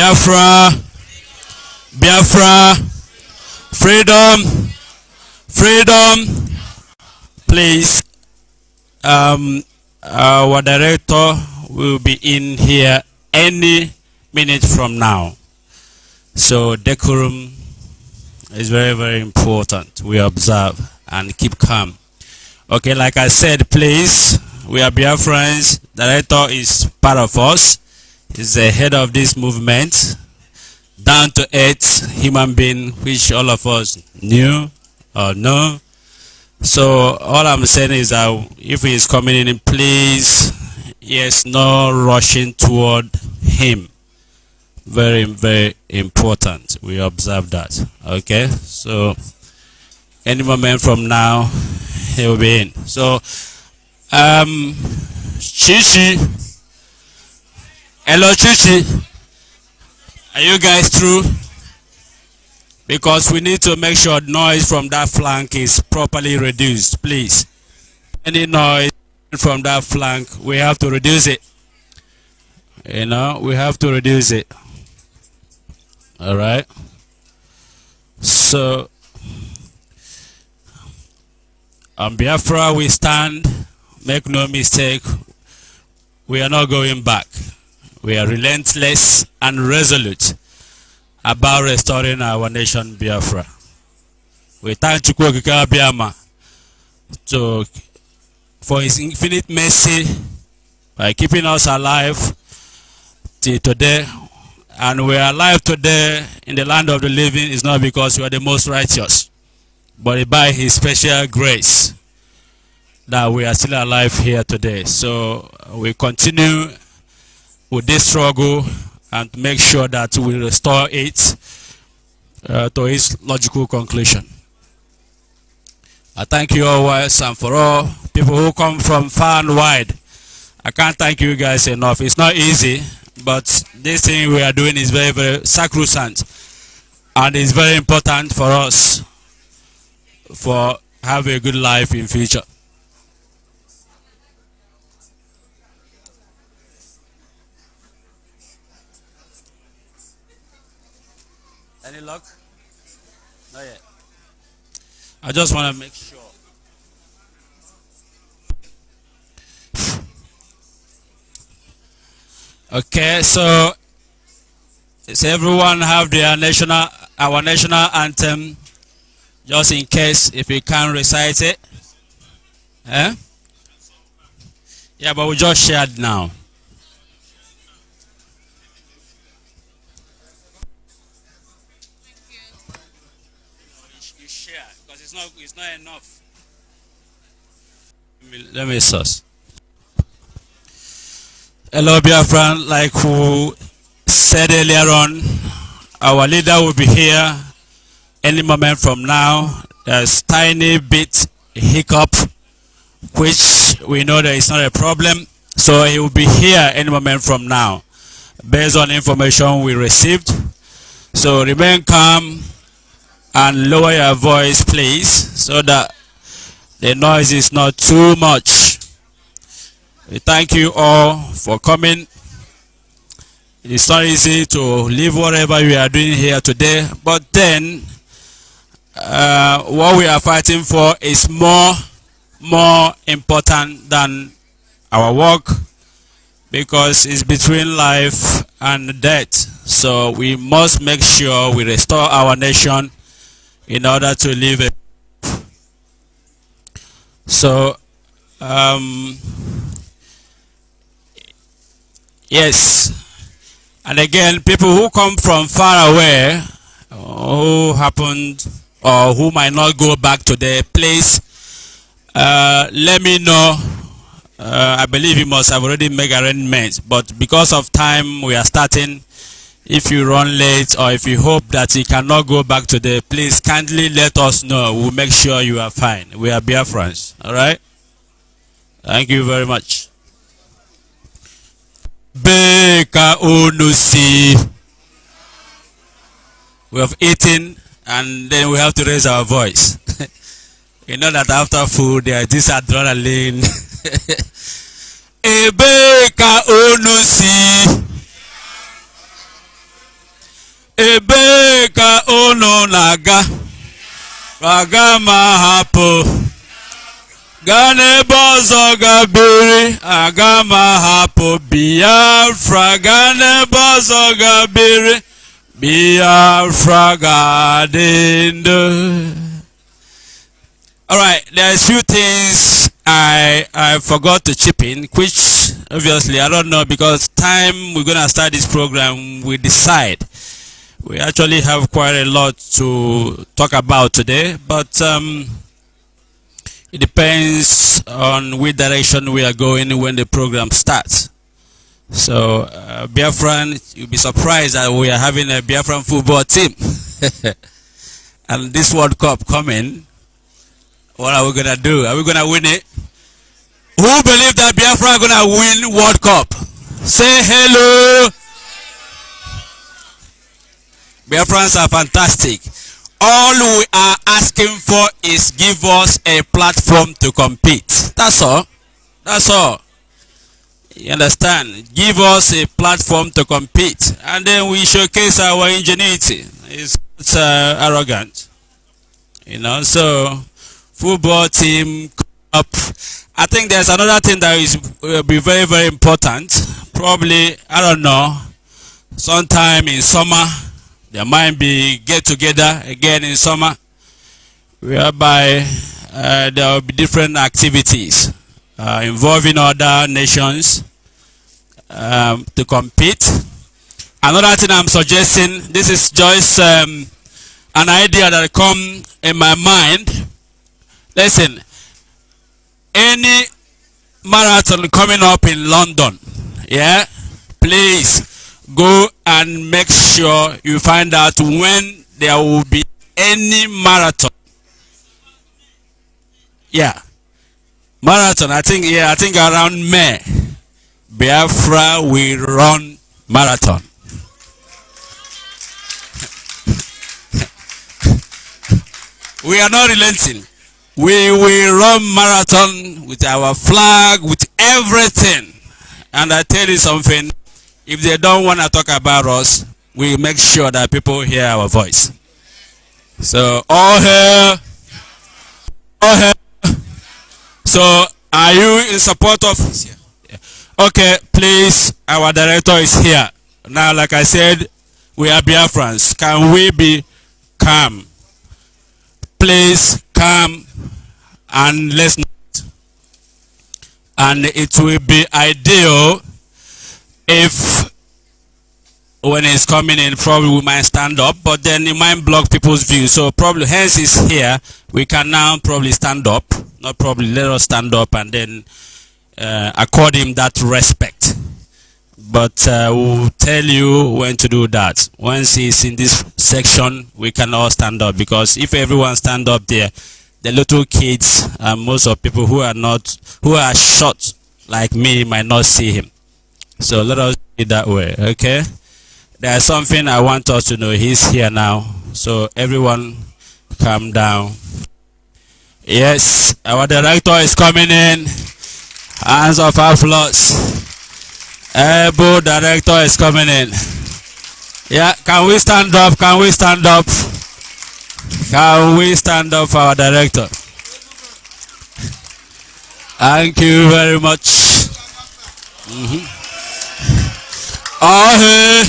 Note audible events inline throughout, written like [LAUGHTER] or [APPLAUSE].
Biafra, Biafra, freedom, freedom. Please, um, uh, our director will be in here any minute from now. So decorum is very, very important. We observe and keep calm. Okay, like I said, please, we are Biafrans. Director is part of us is the head of this movement, down to earth human being, which all of us knew or know. So all I'm saying is that if he is coming in, please, yes, no rushing toward him. Very, very important. We observe that. Okay, so any moment from now, he will be in. So, um, Chichi. Hello, Chichi. Are you guys through? Because we need to make sure noise from that flank is properly reduced, please. Any noise from that flank, we have to reduce it. You know, we have to reduce it. All right. So, on Biafra, we stand. Make no mistake, we are not going back. We are relentless and resolute about restoring our nation Biafra. We thank Chukwokika Biama to, for his infinite mercy by keeping us alive till today. And we are alive today in the land of the living is not because we are the most righteous, but by his special grace that we are still alive here today. So we continue with this struggle and make sure that we restore it uh, to its logical conclusion. I thank you all once and for all people who come from far and wide. I can't thank you guys enough. It's not easy, but this thing we are doing is very, very sacrosanct and it's very important for us for have a good life in future. Any luck? Not yet. I just want to make sure. Okay, so does everyone have their national, our national anthem, just in case if you can't recite it? Eh? Yeah, but we just shared now. not enough. Let me source. Hello, friend. Like who said earlier on, our leader will be here any moment from now. There's tiny bit hiccup, which we know that it's not a problem. So he will be here any moment from now, based on information we received. So remain calm and lower your voice please so that the noise is not too much we thank you all for coming it's not easy to leave whatever we are doing here today but then uh, what we are fighting for is more more important than our work because it's between life and death so we must make sure we restore our nation in order to live it. So, um, yes, and again, people who come from far away, who happened or who might not go back to their place, uh, let me know. Uh, I believe you must have already made arrangements, but because of time, we are starting if you run late or if you hope that you cannot go back today, please kindly let us know. We'll make sure you are fine. We are friends, All right? Thank you very much. We have eaten and then we have to raise our voice. [LAUGHS] you know that after food, there is this adrenaline. [LAUGHS] Ebeka Onusi. Ebeka uno unu na hapụ gaa n'ebe ọzọ ga biri hapụ biafra gaa n'ebe ọzọ biafra All right, there's few things I I forgot to chip in, which obviously I don't know because time we're gonna start this program, we decide. We actually have quite a lot to talk about today, but um, it depends on which direction we are going when the program starts. So, uh, Biafran, you'll be surprised that we are having a Biafran football team. [LAUGHS] and this World Cup coming, what are we going to do? Are we going to win it? Who believe that Biafra going to win World Cup? Say hello friends are fantastic. All we are asking for is give us a platform to compete. That's all. That's all. You understand? Give us a platform to compete. And then we showcase our ingenuity. It's uh, arrogant. You know, so football team up. I think there's another thing that is will be very, very important. Probably, I don't know, sometime in summer there might be get together again in summer, whereby uh, there will be different activities uh, involving other nations um, to compete. Another thing I'm suggesting, this is just um, an idea that come in my mind. Listen, any marathon coming up in London, yeah, please go and make sure you find out when there will be any marathon. Yeah. Marathon, I think, yeah, I think around May, Biafra will run marathon. we are not relenting. We will run marathon with our flag, with everything. And I tell you something, if they don't want to talk about us, we make sure that people hear our voice. So all hail, all hail. So are you in support of? Okay, please, our director is here. Now, like I said, we are Biafrans. Can we be calm? Please calm, and listen. And it will be ideal if when he's coming in, probably we might stand up, but then it might block people's view. So probably, hence is here. We can now probably stand up. Not probably, let us stand up and then uh, accord him that respect. But uh, we'll tell you when to do that. Once he's in this section, we can all stand up because if everyone stand up there, the little kids and most of people who are not who are short like me might not see him. So let us do it that way, okay? There's something I want us to know. He's here now. So everyone calm down. Yes, our director is coming in. Hands of applause. Ebo director is coming in. Yeah, can we stand up? Can we stand up? Can we stand up for our director? Thank you very much. Mm -hmm. Ahe.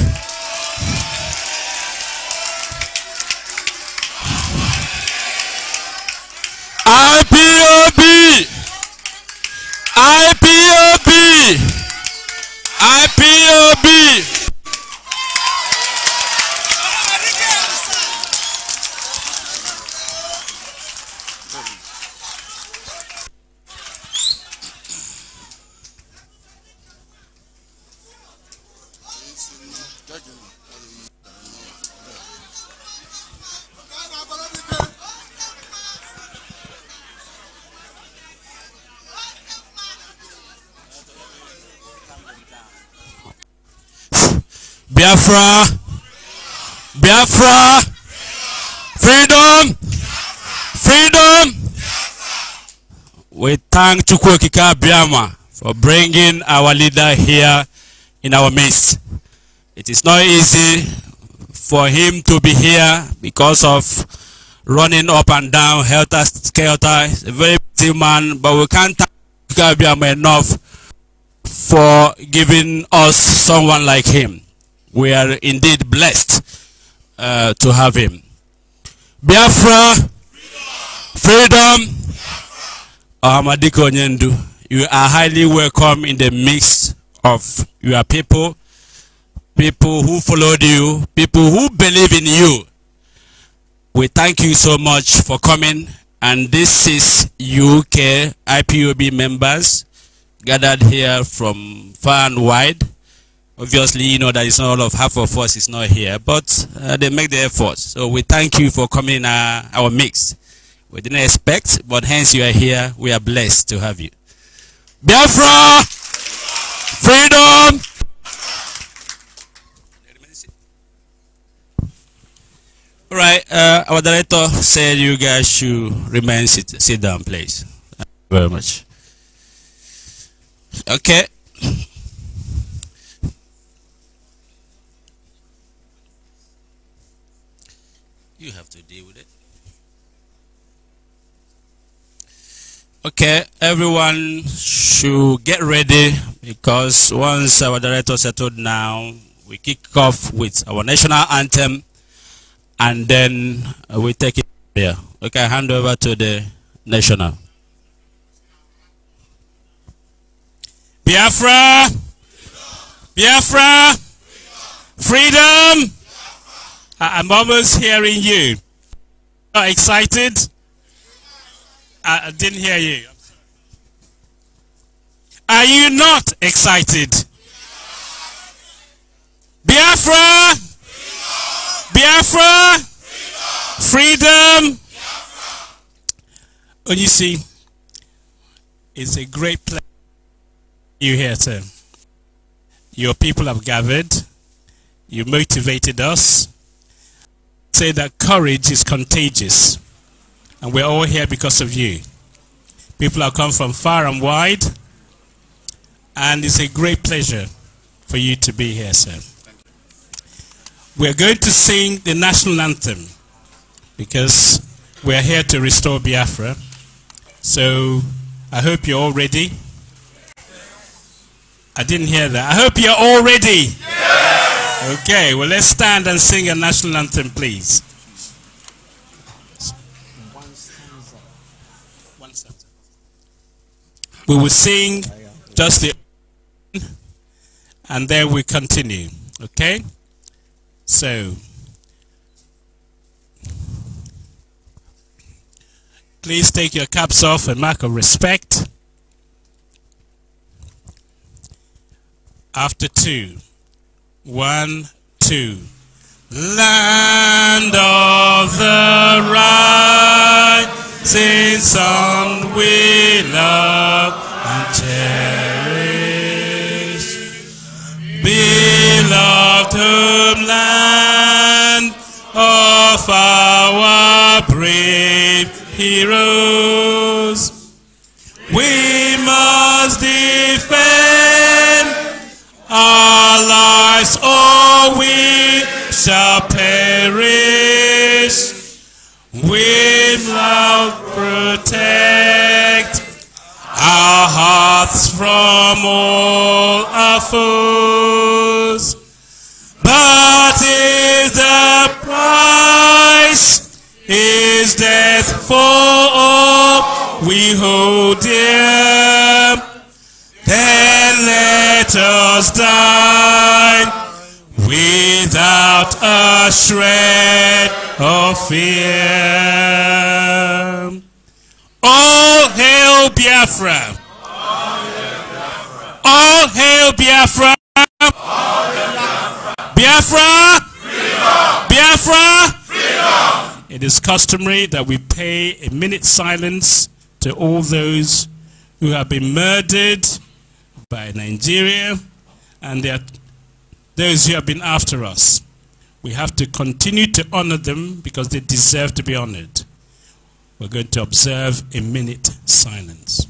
IPOB IPOB IPOB. Biafra. Biafra. Freedom. Freedom. We thank Chukwokika Biama for bringing our leader here in our midst. It is not easy for him to be here because of running up and down, helter skelter. He's a very busy man, but we can't thank Chukwokika Biama enough for giving us someone like him we are indeed blessed uh, to have him. Biafra, freedom, freedom. Amadiko Nyendu, you are highly welcome in the midst of your people, people who followed you, people who believe in you. We thank you so much for coming. And this is UK IPOB members gathered here from far and wide. Obviously, you know that it's not all of half of us is not here, but uh, they make the effort. So we thank you for coming in our, our mix. We didn't expect, but hence you are here. We are blessed to have you. Biafra! Freedom! All right, uh, our director said you guys should remain sit, sit down, please. Thank you very much. Okay. Okay, everyone should get ready because once our director settled now, we kick off with our national anthem and then we take it there. Okay, hand over to the national. Biafra! Biafra! Freedom! I'm almost hearing you. Are excited? I, I didn't hear you. Are you not excited? Biafra! Biafra! Freedom! And you see, it's a great pleasure you here sir. Your people have gathered. You motivated us. Say that courage is contagious. And we're all here because of you. People have come from far and wide. And it's a great pleasure for you to be here, sir. We're going to sing the national anthem because we're here to restore Biafra. So I hope you're all ready. I didn't hear that. I hope you're all ready. Yes. Okay, well, let's stand and sing a national anthem, please. We will sing just the and then we continue. Okay? So please take your caps off and mark of respect. After two, one, two. Land of the right since on we love and cherish. Beloved whom life protect our hearts from all our foes. But is the price, is death for all we hold dear. Then let us die without a shred of fear. All hail Biafra. All hail Biafra. Biafra. Biafra. It is customary that we pay a minute silence to all those who have been murdered by Nigeria and their, those who have been after us. We have to continue to honor them because they deserve to be honored. We're going to observe a minute silence.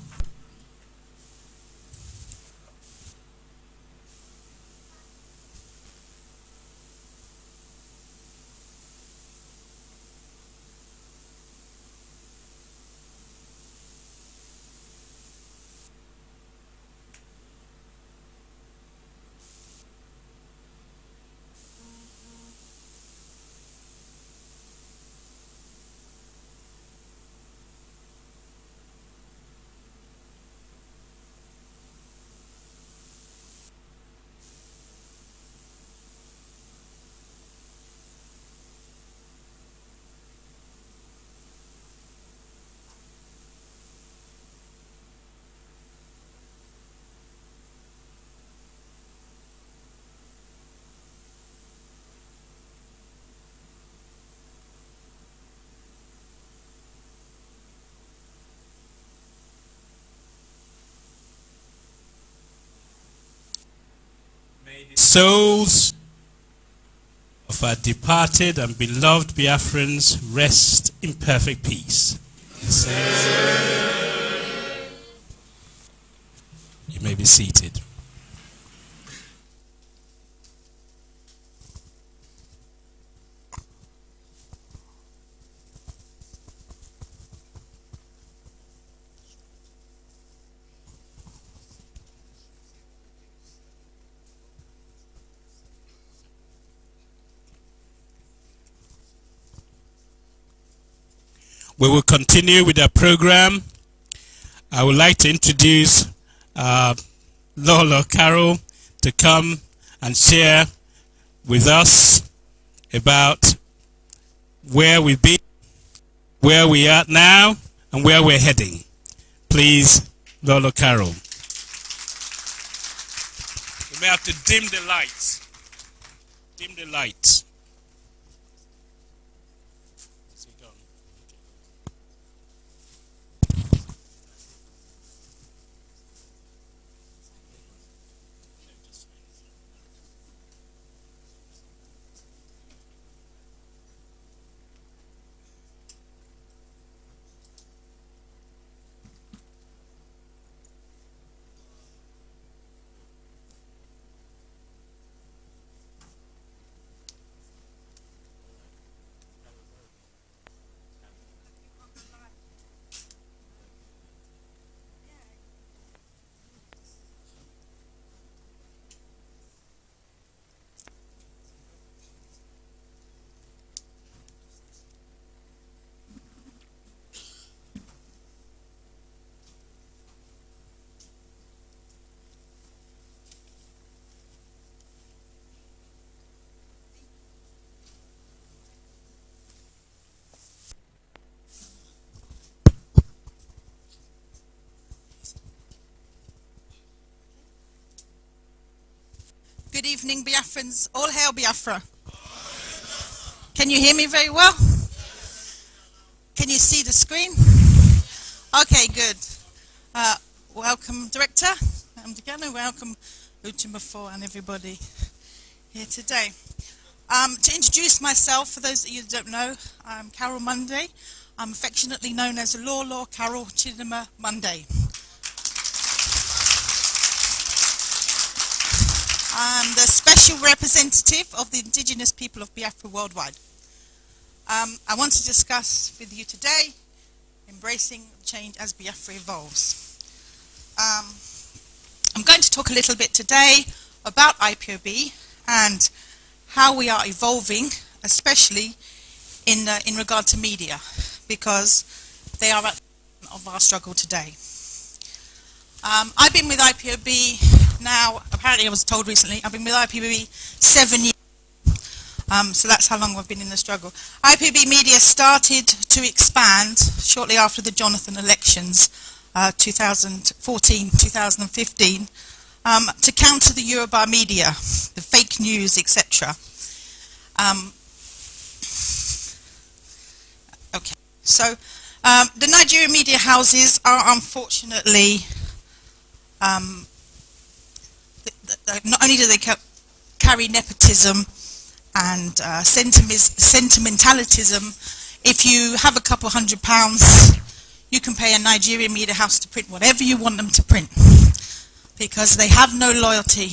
souls of our departed and beloved Biafrans rest in perfect peace. You may be seated. we will continue with our program. I would like to introduce uh, Lola Carroll to come and share with us about where we've been, where we are now, and where we're heading. Please, Lola Carroll. You may have to dim the lights. Dim the lights. Good evening, Biafrans. All hail Biafra. Can you hear me very well? Can you see the screen? Okay, good. Uh, welcome, Director. I'm going welcome Utimafor and everybody here today. Um, to introduce myself, for those of you who don't know, I'm Carol Monday. I'm affectionately known as Law Law Carol Chinima Monday. I'm the special representative of the indigenous people of Biafra worldwide. Um, I want to discuss with you today embracing change as Biafra evolves. Um, I'm going to talk a little bit today about IPOB and how we are evolving, especially in, uh, in regard to media, because they are at the of our struggle today. Um, I've been with IPOB now, apparently I was told recently, I've been with IPB seven years. Um, so that's how long I've been in the struggle. IPB Media started to expand shortly after the Jonathan elections, 2014-2015, uh, um, to counter the Eurobar media, the fake news, etc. Um, okay, so um, the Nigerian media houses are unfortunately um, uh, not only do they carry nepotism and uh, sentimentalism, if you have a couple hundred pounds, you can pay a Nigerian media house to print whatever you want them to print because they have no loyalty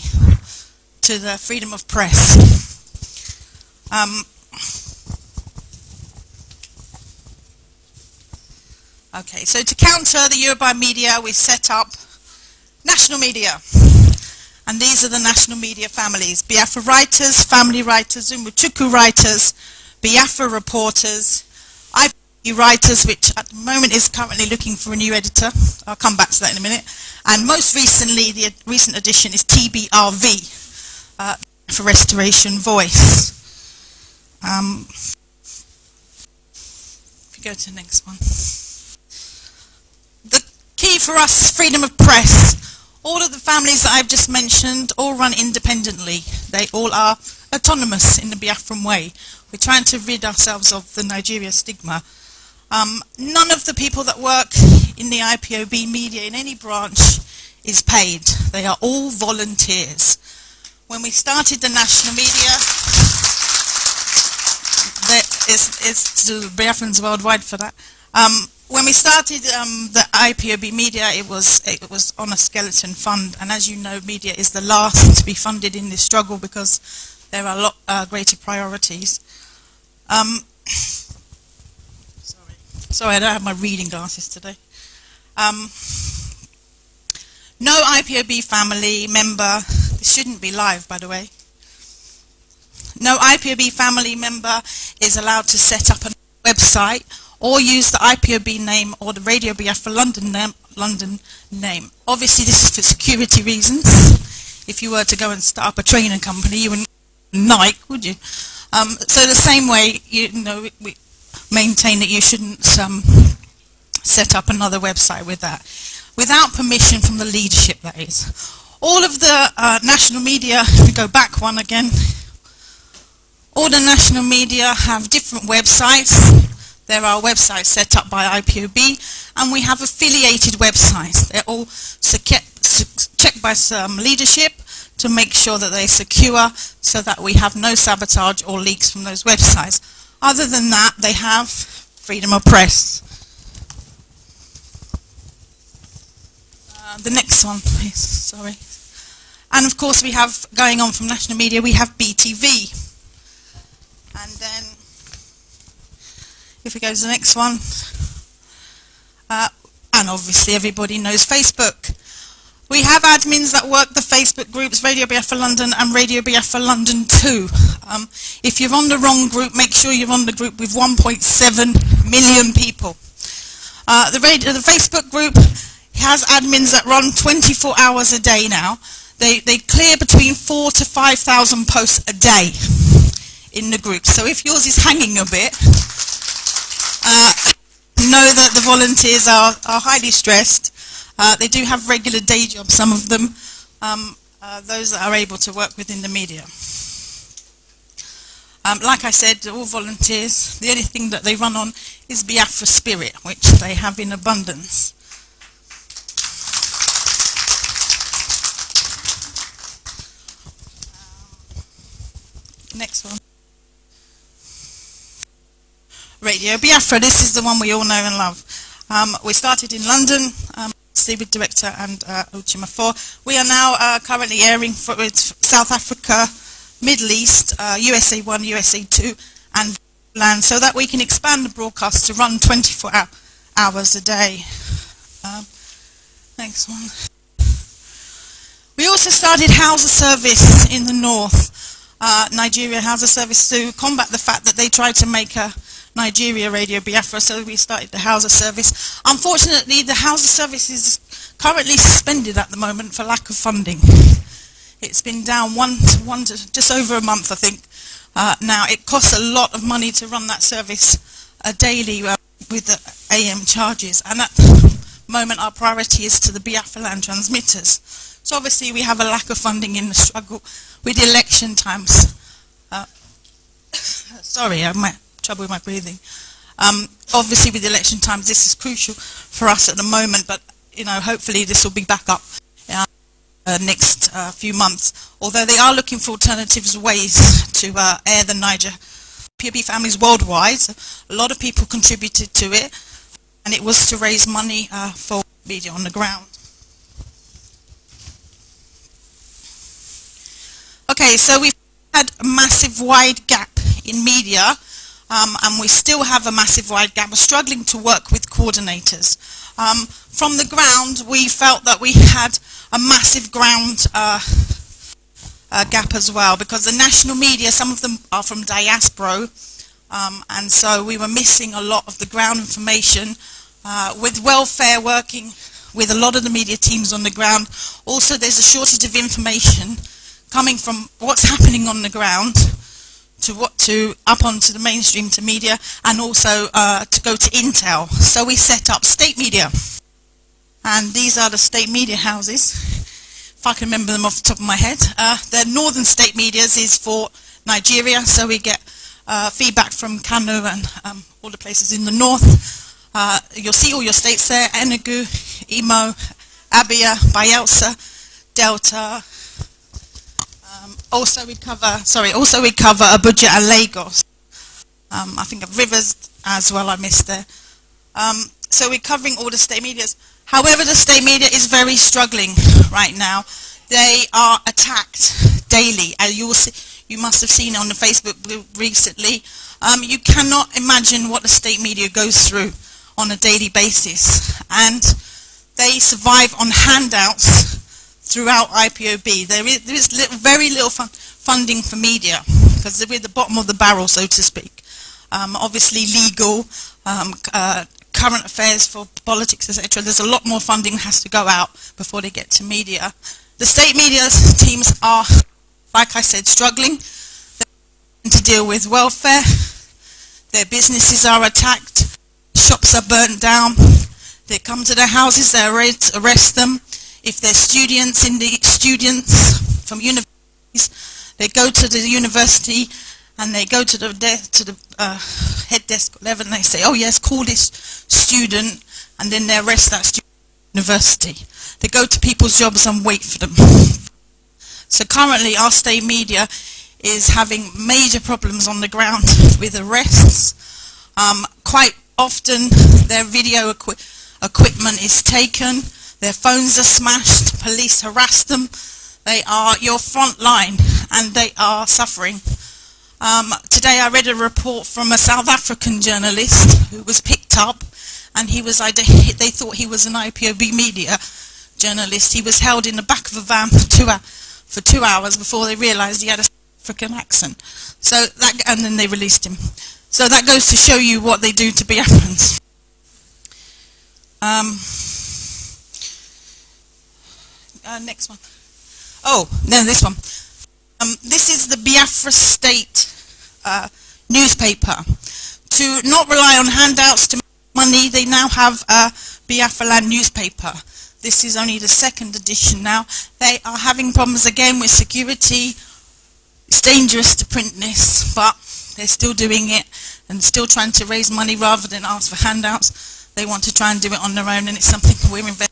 to the freedom of press. Um, okay, so to counter the Yoruba media, we set up national media. And these are the national media families, Biafra writers, family writers, Umuchuku writers, Biafra reporters, IP writers, which at the moment is currently looking for a new editor. I'll come back to that in a minute. And most recently, the recent addition is TBRV, uh, for Restoration Voice. Um, if you go to the next one. The key for us, freedom of press, all of the families that I've just mentioned all run independently. They all are autonomous in the Biafran way. We're trying to rid ourselves of the Nigeria stigma. Um, none of the people that work in the IPOB media in any branch is paid. They are all volunteers. When we started the national media, that is, is to Biafrans worldwide for that. Um, when we started um, the IPOB media, it was it was on a skeleton fund, and as you know, media is the last to be funded in this struggle because there are a lot uh, greater priorities. Um, sorry, sorry, I don't have my reading glasses today. Um, no IPOB family member. This shouldn't be live, by the way. No IPOB family member is allowed to set up a website or use the IPOB name or the Radio BF for London, London name. Obviously, this is for security reasons. If you were to go and start up a training company, you wouldn't Nike, would you? Um, so the same way, you know, we, we maintain that you shouldn't um, set up another website with that, without permission from the leadership, that is. All of the uh, national media, if we go back one again, all the national media have different websites there are websites set up by IPOB, and we have affiliated websites. They're all checked by some leadership to make sure that they're secure so that we have no sabotage or leaks from those websites. Other than that, they have freedom of press. Uh, the next one, please. Sorry. And of course, we have, going on from national media, we have BTV. And then if we go to the next one. Uh, and obviously everybody knows Facebook. We have admins that work the Facebook groups Radio BF for London and Radio BF for London 2. Um, if you're on the wrong group, make sure you're on the group with 1.7 million people. Uh, the, radio, the Facebook group has admins that run 24 hours a day now. They, they clear between four to 5,000 posts a day in the group. So if yours is hanging a bit, uh, know that the volunteers are, are highly stressed. Uh, they do have regular day jobs, some of them, um, uh, those that are able to work within the media. Um, like I said, all volunteers, the only thing that they run on is Biafra spirit, which they have in abundance. Next one. Radio Biafra. This is the one we all know and love. Um, we started in London, um, with director and uh, Uchima 4. We are now uh, currently airing for South Africa, Middle East, uh, USA 1, USA 2, and land so that we can expand the broadcast to run 24 hour, hours a day. Um, next one. We also started Hausa service in the north, uh, Nigeria Hausa service to combat the fact that they tried to make a Nigeria Radio Biafra, so we started the Hausa service. Unfortunately, the Hausa service is currently suspended at the moment for lack of funding. It's been down one to one to just over a month, I think. Uh, now, it costs a lot of money to run that service uh, daily uh, with the AM charges, and at the moment, our priority is to the Biafra land transmitters. So obviously, we have a lack of funding in the struggle with election times. Uh, [COUGHS] sorry, I uh, might trouble with my breathing. Um, obviously, with election times, this is crucial for us at the moment, but you know, hopefully this will be back up uh, uh, next uh, few months. Although they are looking for alternatives ways to uh, air the Niger. POB families worldwide, a lot of people contributed to it, and it was to raise money uh, for media on the ground. Okay, so we've had a massive wide gap in media um, and we still have a massive wide gap. We're struggling to work with coordinators. Um, from the ground, we felt that we had a massive ground uh, uh, gap as well because the national media, some of them are from diaspora, um, and so we were missing a lot of the ground information. Uh, with welfare working with a lot of the media teams on the ground, also there's a shortage of information coming from what's happening on the ground to what to up onto the mainstream to media and also uh, to go to Intel. So we set up state media, and these are the state media houses. If I can remember them off the top of my head, uh, the Northern State Media's is for Nigeria, so we get uh, feedback from Kano and um, all the places in the north. Uh, you'll see all your states there: Enugu, Imo, Abia, Bayelsa, Delta, also we cover, sorry, also we cover Abuja and Lagos. Um, I think Rivers as well, I missed there. Um, so we're covering all the state medias. However, the state media is very struggling right now. They are attacked daily, and you will see, you must have seen on the Facebook recently. Um, you cannot imagine what the state media goes through on a daily basis, and they survive on handouts throughout IPOB. There is, there is little, very little fun funding for media because we're at the bottom of the barrel, so to speak. Um, obviously, legal, um, uh, current affairs for politics, etc. There's a lot more funding that has to go out before they get to media. The state media teams are, like I said, struggling to deal with welfare. Their businesses are attacked. Shops are burnt down. They come to their houses, they arrest them if they're students in the students from universities, they go to the university and they go to the to the uh, head desk level and they say, "Oh yes, call this student," and then they arrest that student university. They go to people's jobs and wait for them. so currently, our state media is having major problems on the ground with arrests. Um, quite often, their video equi equipment is taken their phones are smashed, police harass them, they are your front line and they are suffering. Um, today I read a report from a South African journalist who was picked up and he was, [LAUGHS] they thought he was an IPOB media journalist. He was held in the back of a van for two, for two hours before they realized he had a South African accent. So that, and then they released him. So that goes to show you what they do to be Um, uh, next one. Oh, no, this one. Um, this is the Biafra State uh, newspaper. To not rely on handouts to money, they now have a Biafra Land newspaper. This is only the second edition now. They are having problems again with security. It's dangerous to print this, but they're still doing it and still trying to raise money rather than ask for handouts. They want to try and do it on their own, and it's something [LAUGHS] we're investing.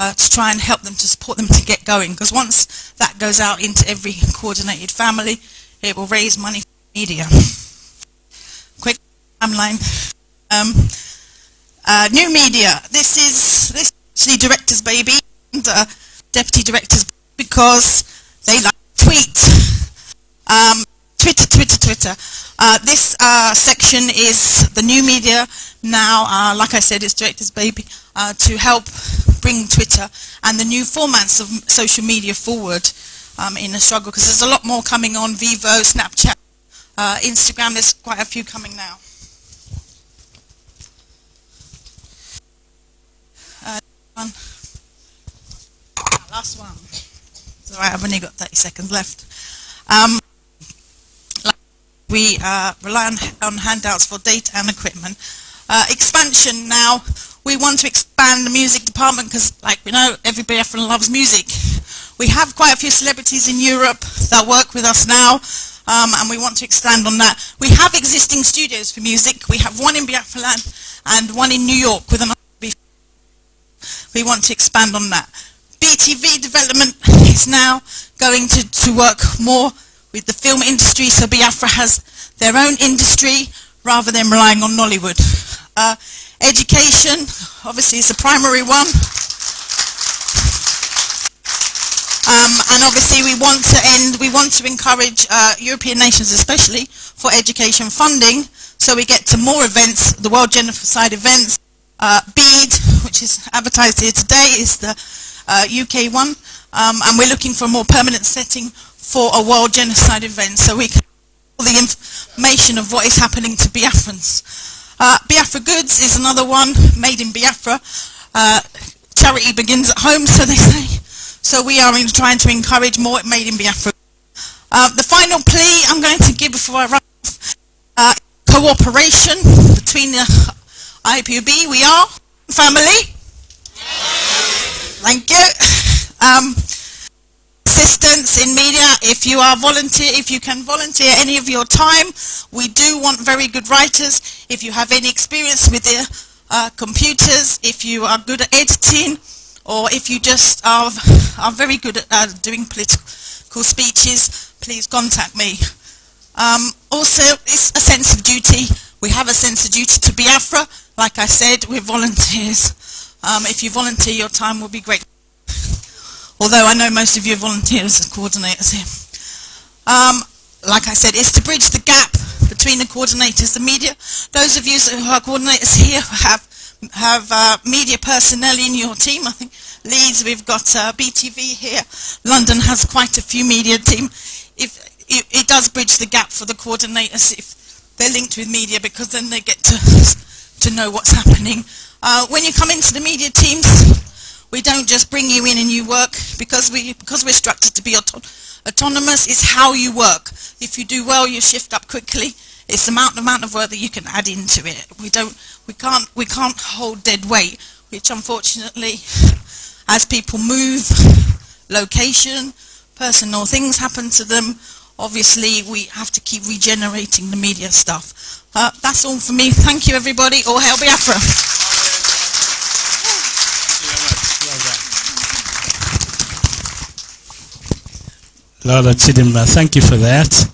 Uh, to try and help them to support them to get going. Because once that goes out into every coordinated family, it will raise money for media. Quick timeline. Um, uh, new media. This is this is director's baby and uh, deputy director's because they like to tweet. Um, Twitter, Twitter, Twitter. Uh, this uh, section is the new media now, uh, like I said, it's director's baby, uh, to help bring Twitter and the new formats of social media forward um, in a struggle because there's a lot more coming on Vivo, Snapchat, uh, Instagram, there's quite a few coming now. Uh, one. Ah, last one. all right, I've only got 30 seconds left. Um, we uh, rely on, on handouts for data and equipment. Uh, expansion now we want to expand the music department because, like we know, everybody often loves music. We have quite a few celebrities in Europe that work with us now, um, and we want to expand on that. We have existing studios for music. We have one in Biafra and one in New York with another. We want to expand on that. BTV development [LAUGHS] is now going to, to work more with the film industry, so Biafra has their own industry rather than relying on Nollywood. Uh, Education, obviously, is the primary one. Um, and obviously, we want to end, we want to encourage uh, European nations, especially, for education funding, so we get to more events, the World Genocide events. Uh, BEAD, which is advertised here today, is the uh, UK one, um, and we're looking for a more permanent setting for a World Genocide event, so we can all the information of what is happening to Biafrans. Uh, Biafra Goods is another one, made in Biafra. Uh, charity begins at home, so they say. So we are trying to encourage more made in Biafra. Uh, the final plea I'm going to give before I run off, uh, cooperation between the IPUB, we are family. Thank you. Um, assistance in media, if you are volunteer, if you can volunteer any of your time, we do want very good writers. If you have any experience with the uh, computers, if you are good at editing, or if you just are, are very good at uh, doing political speeches, please contact me. Um, also, it's a sense of duty. We have a sense of duty to Biafra. Like I said, we're volunteers. Um, if you volunteer, your time will be great although I know most of you are volunteers as coordinators here. Um, like I said, it's to bridge the gap between the coordinators, the media. Those of you who are coordinators here have have uh, media personnel in your team. I think Leeds, we've got uh, BTV here. London has quite a few media team. If it, it, does bridge the gap for the coordinators if they're linked with media because then they get to to know what's happening. Uh, when you come into the media teams, we don't just bring you in and you work because, we, because we're structured to be auto autonomous. It's how you work. If you do well, you shift up quickly. It's the amount, amount of work that you can add into it. We, don't, we, can't, we can't hold dead weight, which unfortunately, as people move, location, personal things happen to them, obviously we have to keep regenerating the media stuff. Uh, that's all for me. Thank you everybody. All hail Biafra. Lola Chidimma, thank you for that.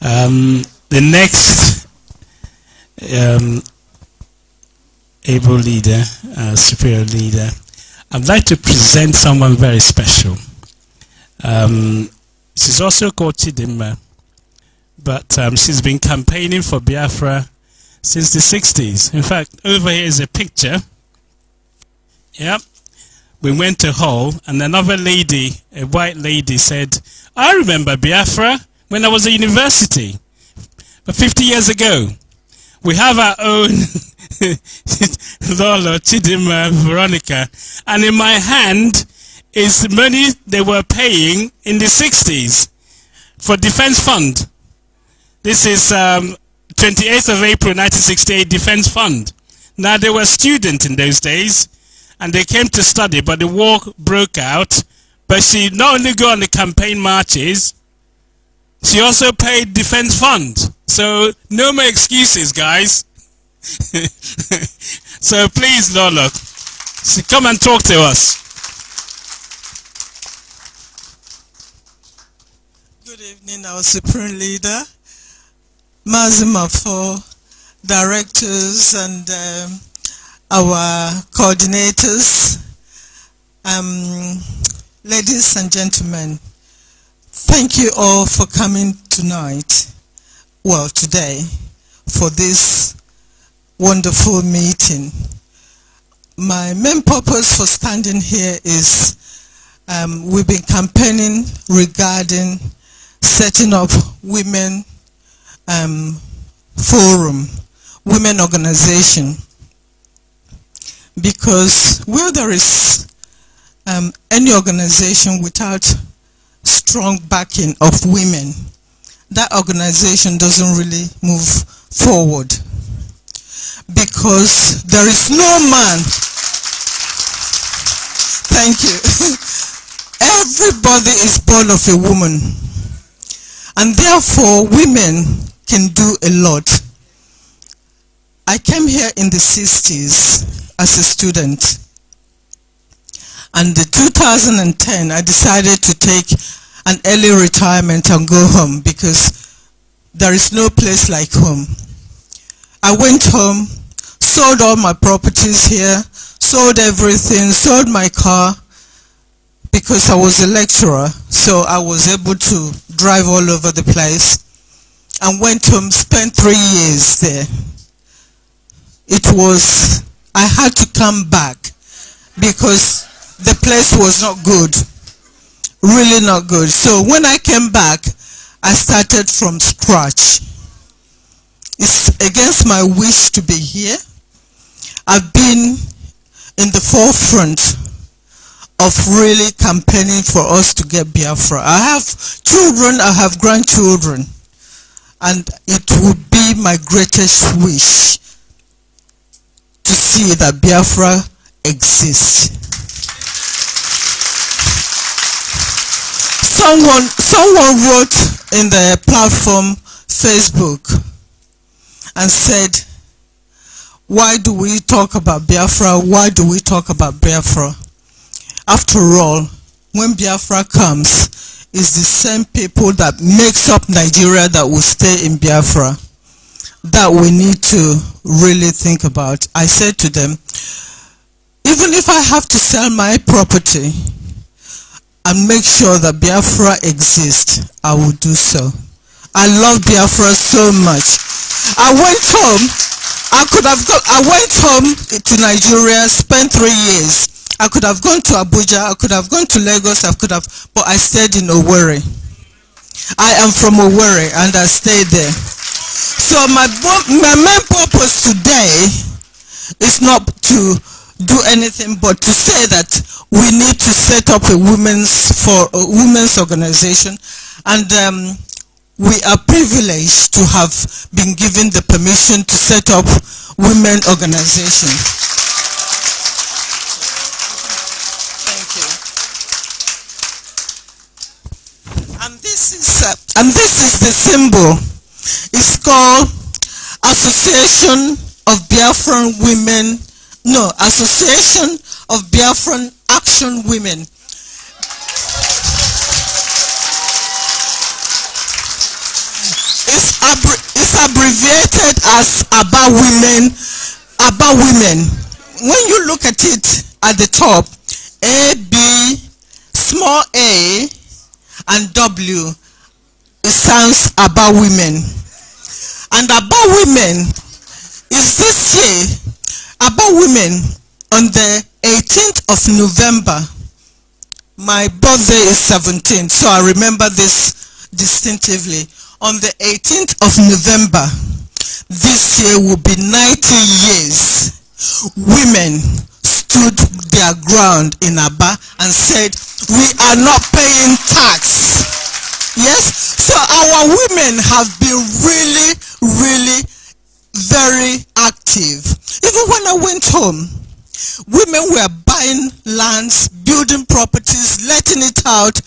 Um, the next um, able leader, uh, superior leader, I'd like to present someone very special. Um, she's also called Chidimma, but um, she's been campaigning for Biafra since the 60s. In fact, over here is a picture. Yep. We went to Hull, and another lady, a white lady, said, I remember Biafra when I was at university, but 50 years ago. We have our own [LAUGHS] Lolo, Chidima, Veronica, and in my hand is money they were paying in the 60s for defense fund. This is um, 28th of April 1968 defense fund. Now they were students in those days and they came to study but the war broke out but she not only go on the campaign marches, she also paid defense fund. So no more excuses, guys. [LAUGHS] so please, Lola, come and talk to us. Good evening, our Supreme Leader, Mazima for directors and um, our coordinators. Um, Ladies and gentlemen, thank you all for coming tonight, well today, for this wonderful meeting. My main purpose for standing here is um, we've been campaigning regarding setting up women um, forum, women organization, because where there is um, any organization without strong backing of women, that organization doesn't really move forward because there is no man. Thank you. [LAUGHS] Everybody is born of a woman. And therefore, women can do a lot. I came here in the 60s as a student and in 2010, I decided to take an early retirement and go home because there is no place like home. I went home, sold all my properties here, sold everything, sold my car because I was a lecturer, so I was able to drive all over the place and went home, spent three years there. It was, I had to come back because the place was not good. Really not good. So when I came back, I started from scratch. It's against my wish to be here. I've been in the forefront of really campaigning for us to get Biafra. I have children, I have grandchildren, and it would be my greatest wish to see that Biafra exists. someone someone wrote in the platform Facebook and said, why do we talk about Biafra? Why do we talk about Biafra? After all, when Biafra comes, it's the same people that makes up Nigeria that will stay in Biafra that we need to really think about. I said to them, even if I have to sell my property, and make sure that Biafra exists, I will do so. I love Biafra so much. I went home. I could have gone. I went home to Nigeria, spent three years. I could have gone to Abuja. I could have gone to Lagos. I could have, but I stayed in Owerri. I am from Owerri, and I stayed there. So my my main purpose today is not to do anything but to say that we need to set up a women's for a women's organization and um, we are privileged to have been given the permission to set up women organization thank you and this is uh, and this is the symbol it's called association of biafran women no, Association of Biafran Action Women. It's, abbre it's abbreviated as ABBA Women. ABBA Women. When you look at it at the top, A, B, small a, and W, it sounds ABBA Women. And ABBA Women is this year about women on the 18th of November. My birthday is 17, so I remember this distinctively. On the 18th of November, this year will be 90 years. Women stood their ground in Abba and said, we are not paying tax. Yes? So our women have been really, really very active. Even when I went home, women were buying lands, building properties, letting it out.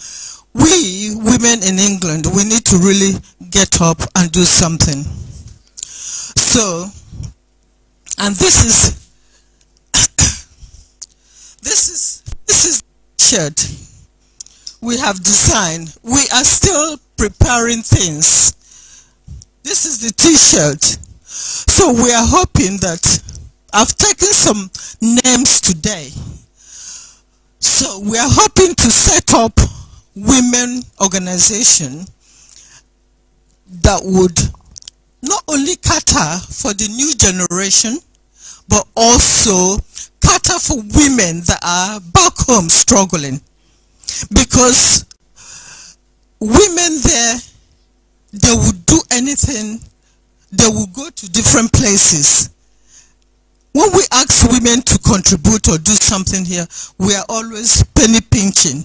We women in England, we need to really get up and do something. So, and this is, [COUGHS] this is, this is shirt we have designed. We are still preparing things. This is the t-shirt so we are hoping that I've taken some names today. So we are hoping to set up women organization that would not only cater for the new generation, but also cater for women that are back home struggling. Because women there, they would do anything they will go to different places. When we ask women to contribute or do something here, we are always penny pinching.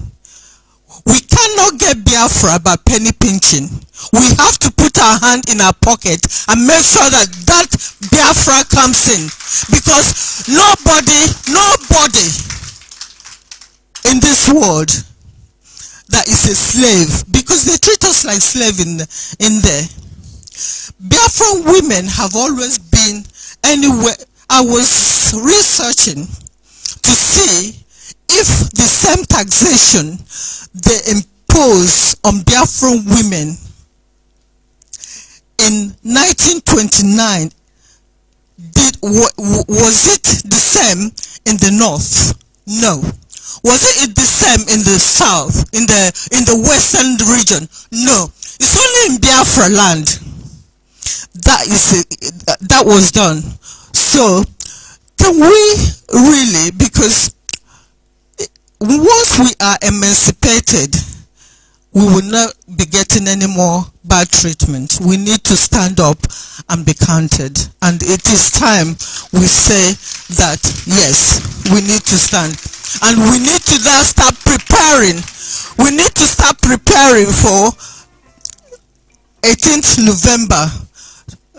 We cannot get Biafra by penny pinching. We have to put our hand in our pocket and make sure that that Biafra comes in. Because nobody, nobody in this world that is a slave, because they treat us like slave in, in there. Biafran women have always been anywhere. I was researching to see if the same taxation they impose on Biafran women in 1929 did was it the same in the north no was it the same in the south in the in the western region no it's only in biafra land that is that was done so can we really because once we are emancipated we will not be getting any more bad treatment we need to stand up and be counted and it is time we say that yes we need to stand and we need to now start preparing we need to start preparing for 18th november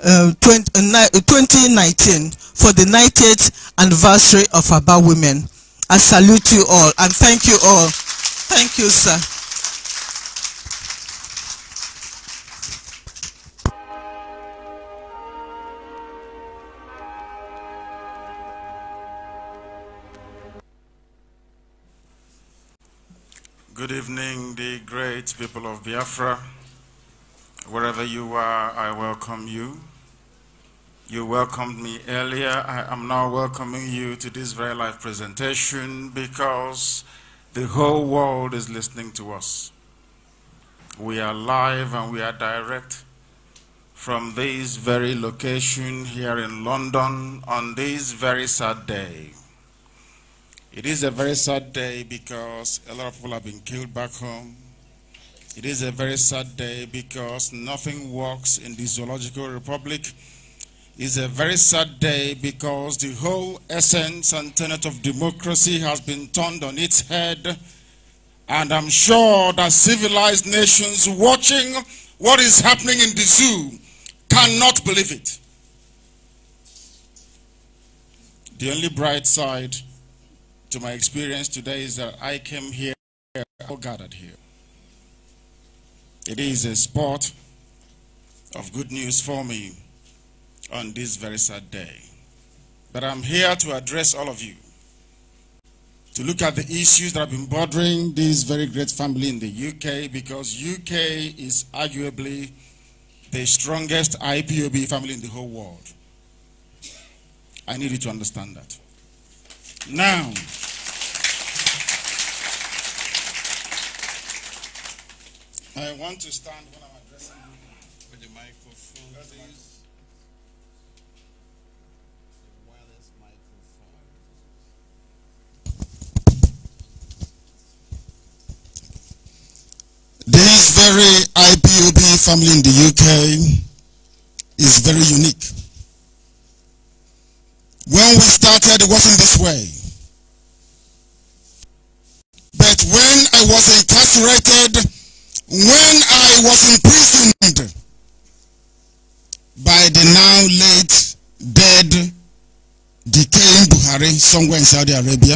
uh, 2019 uh, uh, for the 90th anniversary of Aba Women. I salute you all and thank you all. Thank you, sir. Good evening, the great people of Biafra. Wherever you are, I welcome you. You welcomed me earlier. I am now welcoming you to this very live presentation because the whole world is listening to us. We are live and we are direct from this very location here in London on this very sad day. It is a very sad day because a lot of people have been killed back home. It is a very sad day because nothing works in the Zoological Republic it's a very sad day because the whole essence and tenet of democracy has been turned on its head. And I'm sure that civilized nations watching what is happening in the zoo cannot believe it. The only bright side to my experience today is that I came here, all gathered here. It is a spot of good news for me on this very sad day. But I'm here to address all of you, to look at the issues that have been bothering this very great family in the UK, because UK is arguably the strongest IPOB family in the whole world. I need you to understand that. Now, I want to stand. This very IPOB family in the UK is very unique. When we started, it wasn't this way. But when I was incarcerated, when I was imprisoned by the now late dead decaying Buhari somewhere in Saudi Arabia,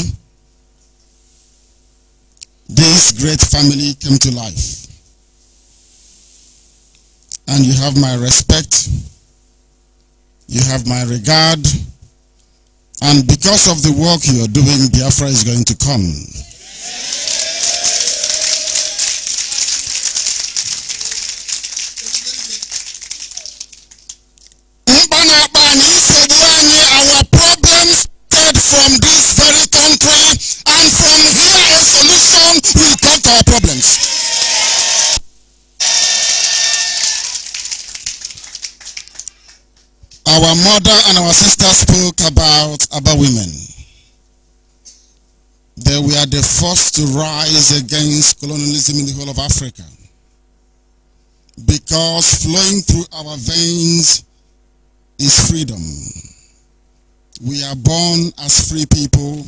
this great family came to life and you have my respect, you have my regard, and because of the work you are doing, Biafra is going to come. from this very country and from here a solution will come to our problem. our mother and our sister spoke about, about women. That we are the first to rise against colonialism in the whole of Africa. Because flowing through our veins is freedom. We are born as free people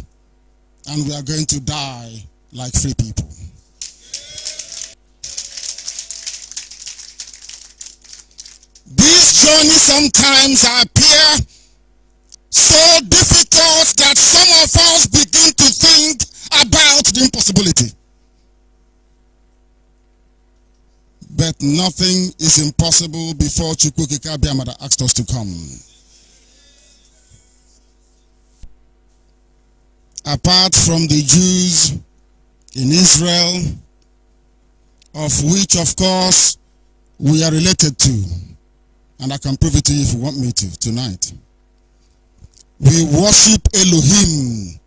and we are going to die like free people. This journey sometimes appear so difficult that some of us begin to think about the impossibility. But nothing is impossible before Chukwukika Biamada asked us to come. Apart from the Jews in Israel, of which, of course, we are related to, And I can prove it to you if you want me to tonight. We worship Elohim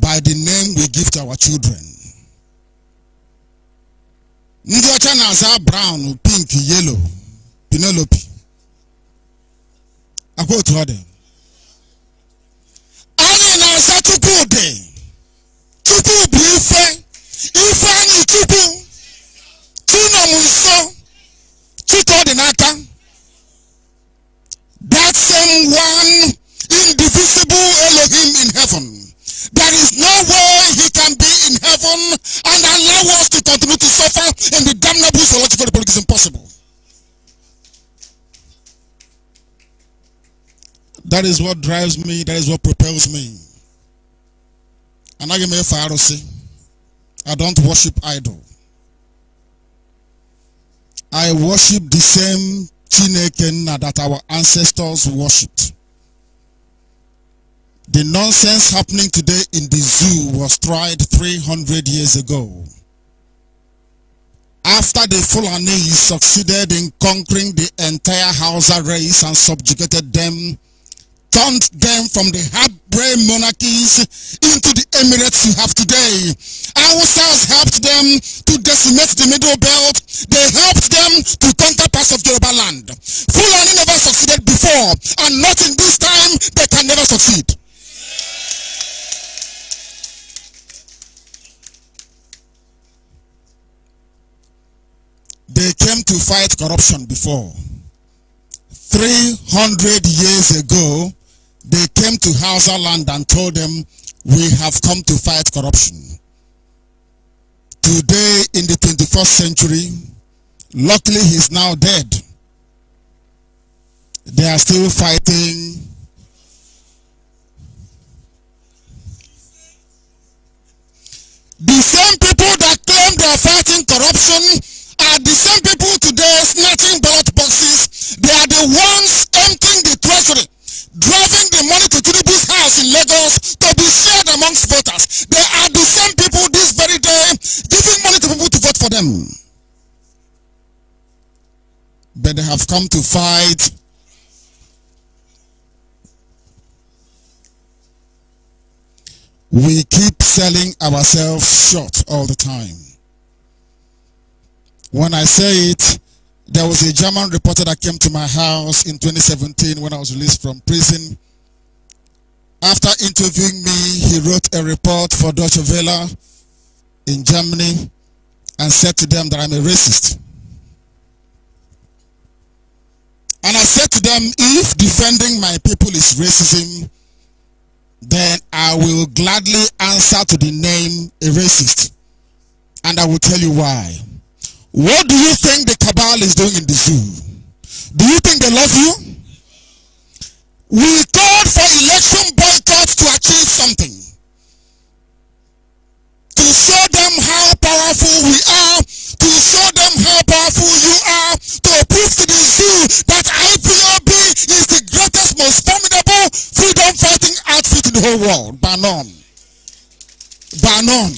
by the name we give to our children. Ndị ọcha na-aza brown, pink, yellow, Penelope. Akwa otu ọ dị. Anyị na-aza Chukwu Chukwu bụ ife. Ife anyị Chukwu. That is what drives me. That is what propels me. And I am a Pharisee. I don't worship idol. I worship the same Chineke that our ancestors worshipped. The nonsense happening today in the zoo was tried 300 years ago. After the Fulani succeeded in conquering the entire Hausa race and subjugated them turned them from the hard-brain monarchies into the Emirates you have today. ourselves helped them to decimate the Middle Belt. They helped them to conquer parts of Yoruba land. Fulani never succeeded before, and not in this time, they can never succeed. They came to fight corruption before. 300 years ago, they came to Hausa land and told them, we have come to fight corruption. Today in the 21st century, luckily he's now dead. They are still fighting The same people that claim they are fighting corruption are the same people today snatching ballot boxes. They are the ones emptying the treasury driving the money to Tinubu's house in Lagos to be shared amongst voters. They are the same people this very day giving money to people to vote for them. But they have come to fight we keep selling ourselves short all the time. When I say it, there was a German reporter that came to my house in 2017 when I was released from prison. After interviewing me, he wrote a report for Deutsche Welle in Germany and said to them that I'm a racist. And I said to them, if defending my people is racism, then I will gladly answer to the name a racist. And I will tell you why. What do you think the cabal is doing in the zoo? Do you think they love you? We called for election boycotts to achieve something. To show them how powerful we are. To show them how powerful you are. To prove to the zoo that IPOB is the greatest, most formidable freedom fighting outfit in the whole world. By none. By none.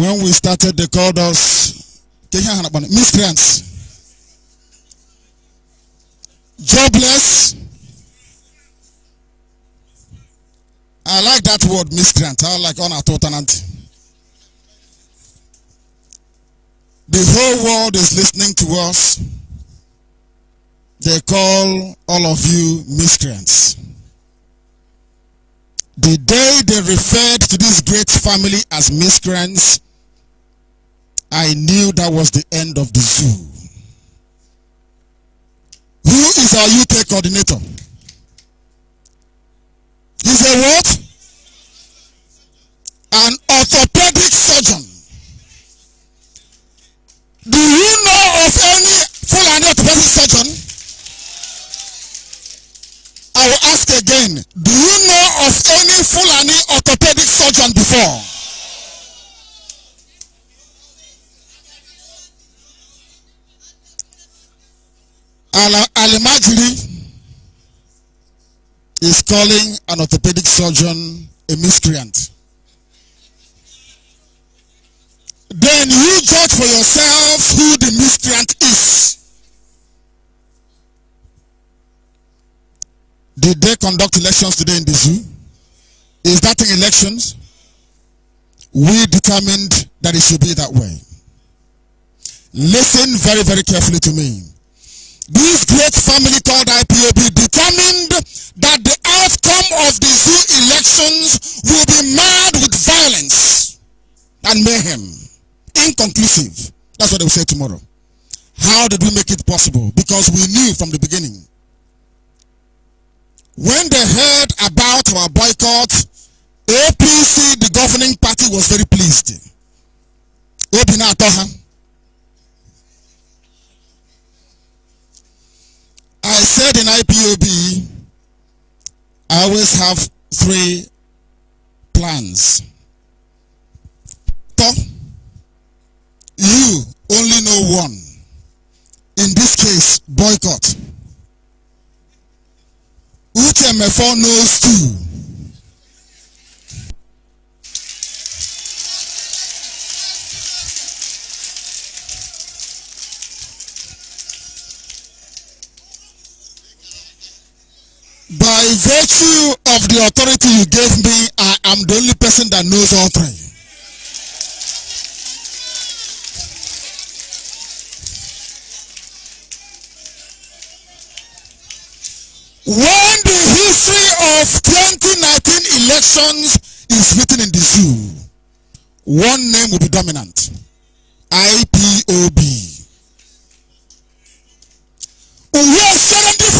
When we started, they called us miscreants, jobless. I like that word, miscreant. I like honor totanant. The whole world is listening to us. They call all of you miscreants. The day they referred to this great family as miscreants I knew that was the end of the zoo. Who is our UK coordinator? He's a what? An orthopedic surgeon. Do you know of any Fulani orthopedic surgeon? I will ask again. Do you know of any Fulani orthopedic surgeon before? al is calling an orthopedic surgeon a miscreant. Then you judge for yourself who the miscreant is. Did they conduct elections today in the zoo? Is that in elections? We determined that it should be that way. Listen very, very carefully to me. This great family called IPOB determined that the outcome of the zoo elections will be marred with violence and mayhem. Inconclusive. That's what they will say tomorrow. How did we make it possible? Because we knew from the beginning. When they heard about our boycott, APC, the governing party, was very pleased. Obi I said in IPOB, I always have three plans. Top, you only know one. In this case, boycott. Uchemefo knows two. by virtue of the authority you gave me, I am the only person that knows all three. When the history of 2019 elections is written in the zoo, one name will be dominant. IPOB. We are surrendering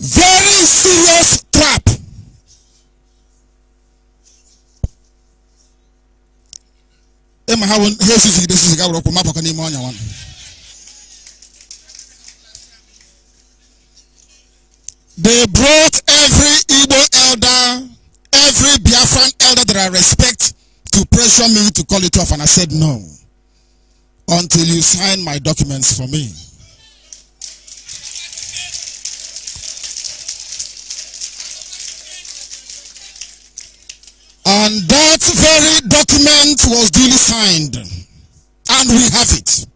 very serious trap. They brought every Igbo elder, every Biafran elder that I respect to pressure me to call it off and I said no. Until you sign my documents for me. And that very document was duly signed. And we have it.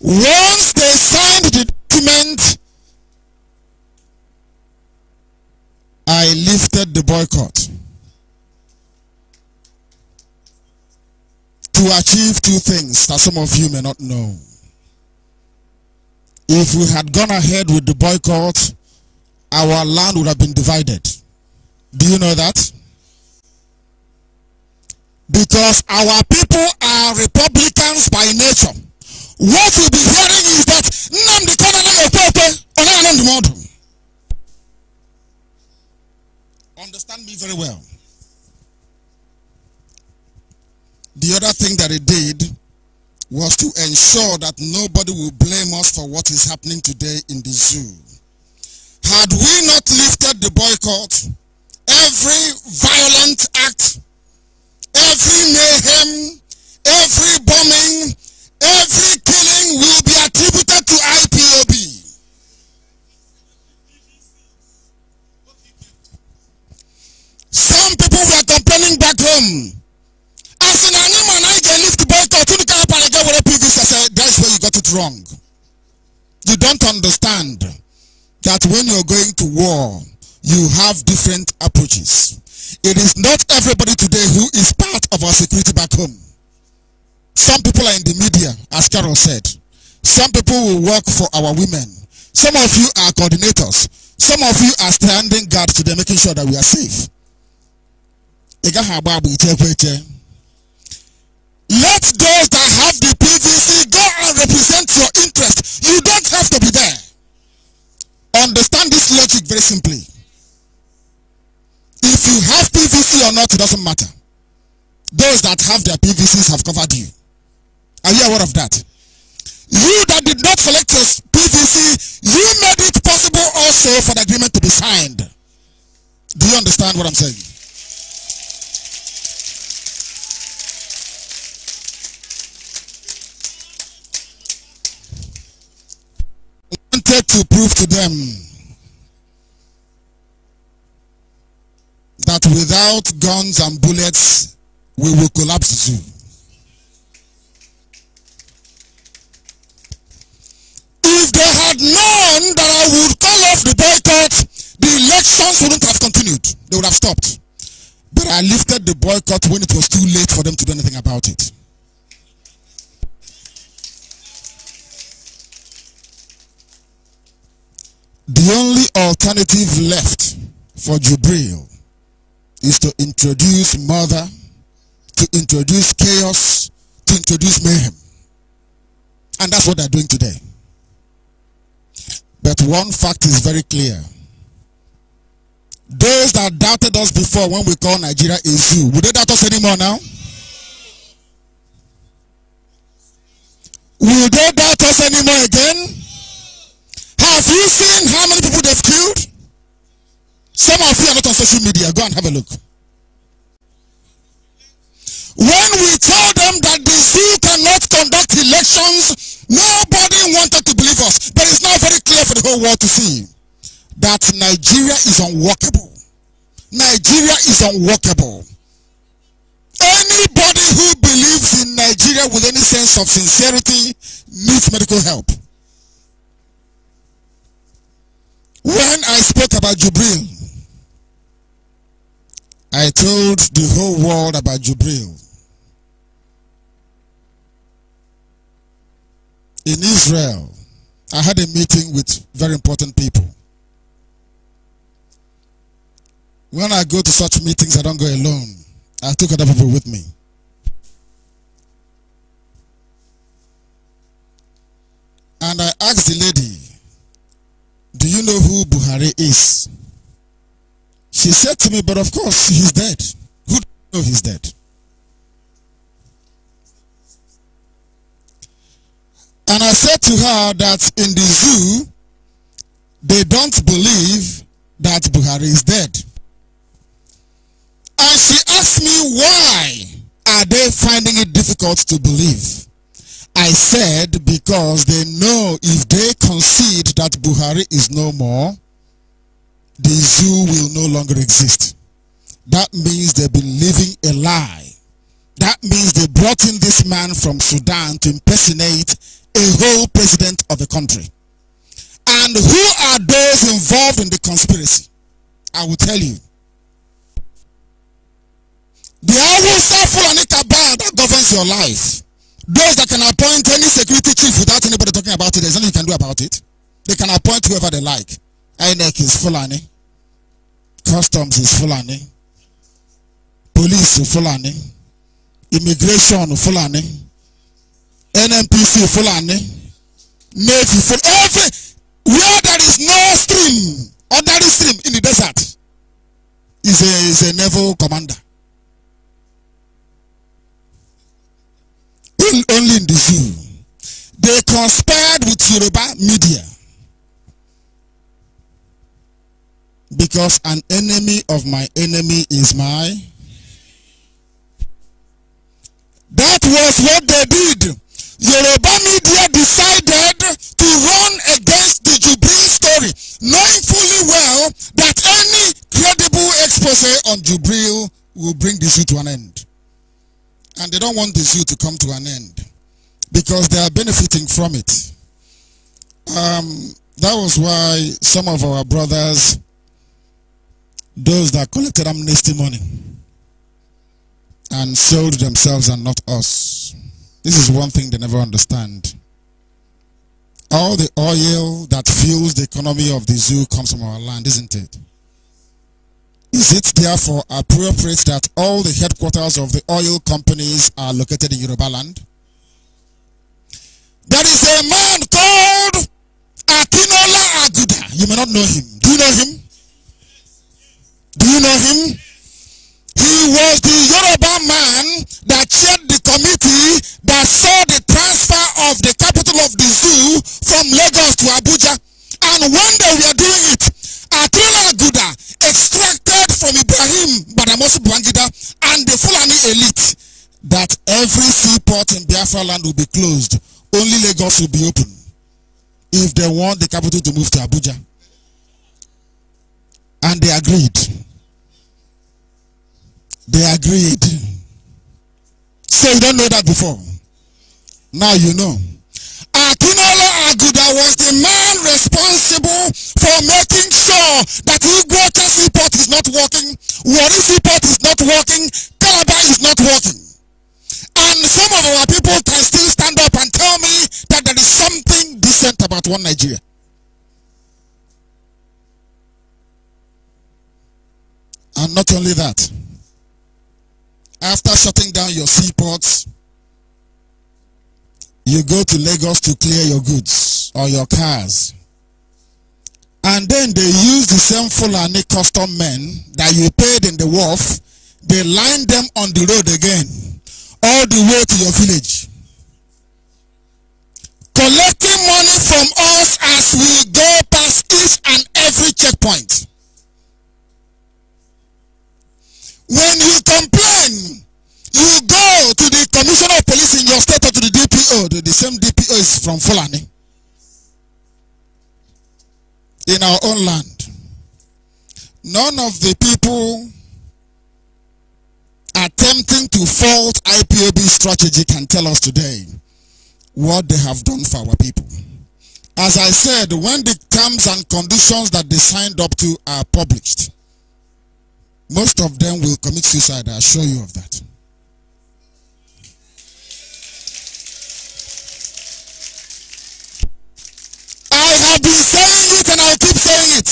Once they signed the document, I lifted the boycott to achieve two things that some of you may not know if we had gone ahead with the boycott, our land would have been divided. Do you know that? Because our people are Republicans by nature. What we'll be hearing is that Nnamdi Kanana Okote Onanamdi model. Understand me very well. The other thing that he did was to ensure that nobody will blame us for what is happening today in the zoo. Had we not lifted the boycott, every violent act, every mayhem, every bombing, every killing will be attributed to IPOB. Some people were complaining back home I said, that's where you got it wrong. You don't understand that when you're going to war, you have different approaches. It is not everybody today who is part of our security back home. Some people are in the media, as Carol said. Some people will work for our women. Some of you are coordinators. Some of you are standing guard today, making sure that we are safe. Let those that have the represent your interest. You don't have to be there. Understand this logic very simply. If you have PVC or not, it doesn't matter. Those that have their PVCs have covered you. Are you aware of that? You that did not select your PVC, you made it possible also for the agreement to be signed. Do you understand what I'm saying? wanted to prove to them that without guns and bullets, we will collapse zoo. If they had known that I would call off the boycott, the elections wouldn't have continued. They would have stopped. But I lifted the boycott when it was too late for them to do anything about it. The only alternative left for Jubril is to introduce murder, to introduce chaos, to introduce mayhem. And that's what they're doing today. But one fact is very clear. Those that doubted us before when we call Nigeria a zoo, would they doubt us anymore now? Will they doubt us anymore again? Have you seen how many people they've killed? Some of you are not on social media. Go and have a look. When we told them that the zoo cannot conduct elections, nobody wanted to believe us. But it's now very clear for the whole world to see that Nigeria is unworkable. Nigeria is unworkable. Anybody who believes in Nigeria with any sense of sincerity needs medical help. When I spoke about Jubril, I told the whole world about Jubril. In Israel, I had a meeting with very important people. When I go to such meetings, I don't go alone. I took other people with me. And I asked the lady, do you know who Buhari is? She said to me, But of course, he's dead. Who do you know he's dead? And I said to her that in the zoo, they don't believe that Buhari is dead. And she asked me, why are they finding it difficult to believe? I said because they know if they concede that Buhari is no more, the zoo will no longer exist. That means they've been living a lie. That means they brought in this man from Sudan to impersonate a whole president of the country. And who are those involved in the conspiracy? I will tell you. The Awusa Fulani Cabal that governs your life those that can appoint any security chief without anybody talking about it, there's nothing you can do about it. They can appoint whoever they like. INEC is Fulani. Customs is Fulani. Police is Fulani. Immigration is Fulani. NMPC Fulani. Navy Fulani. Every, where there is no stream, there is stream in the desert, is a, is a naval commander. only in the zoo. They conspired with Yoruba media. Because an enemy of my enemy is my. That was what they did. Yoruba media decided to run against the Jubril story, knowing fully well that any credible expose on Jubril will bring this to an end. And they don't want the zoo to come to an end because they are benefiting from it. Um, that was why some of our brothers, those that collected amnesty money and sold themselves and not us, this is one thing they never understand. All the oil that fuels the economy of the zoo comes from our land, isn't it? Is it therefore appropriate that all the headquarters of the oil companies are located in Yoruba land? There is a man called Atinola Aguda. You may not know him. Do you know him? Do you know him? He was the Yoruba man that chaired the committee that saw the transfer of the capital of the zoo from Lagos to Abuja. And one day we are doing it. Atinola Aguda extracted from Ibrahim also Bwangida and the Fulani elite that every seaport in Biafra land will be closed. Only Lagos will be open. If they want the capital to move to Abuja. And they agreed. They agreed. So you don't know that before. Now you know. Akinola Aguda was the man responsible for making Port is not working, Warisi Port is not working, Calabar is not working. And some of our people can still stand up and tell me that there is something decent about one Nigeria. And not only that, after shutting down your seaports, you go to Lagos to clear your goods or your cars. And then they used the same Fulani custom men that you paid in the wharf. They lined them on the road again, all the way to your village. Collecting money from us as we go past each and every checkpoint. When you complain, you go to the commissioner of police in your state or to the DPO. The, the same DPO is from Fulani in our own land. None of the people attempting to fault IPOB strategy can tell us today what they have done for our people. As I said, when the terms and conditions that they signed up to are published, most of them will commit suicide. I assure you of that. I've been saying it and I'll keep saying it.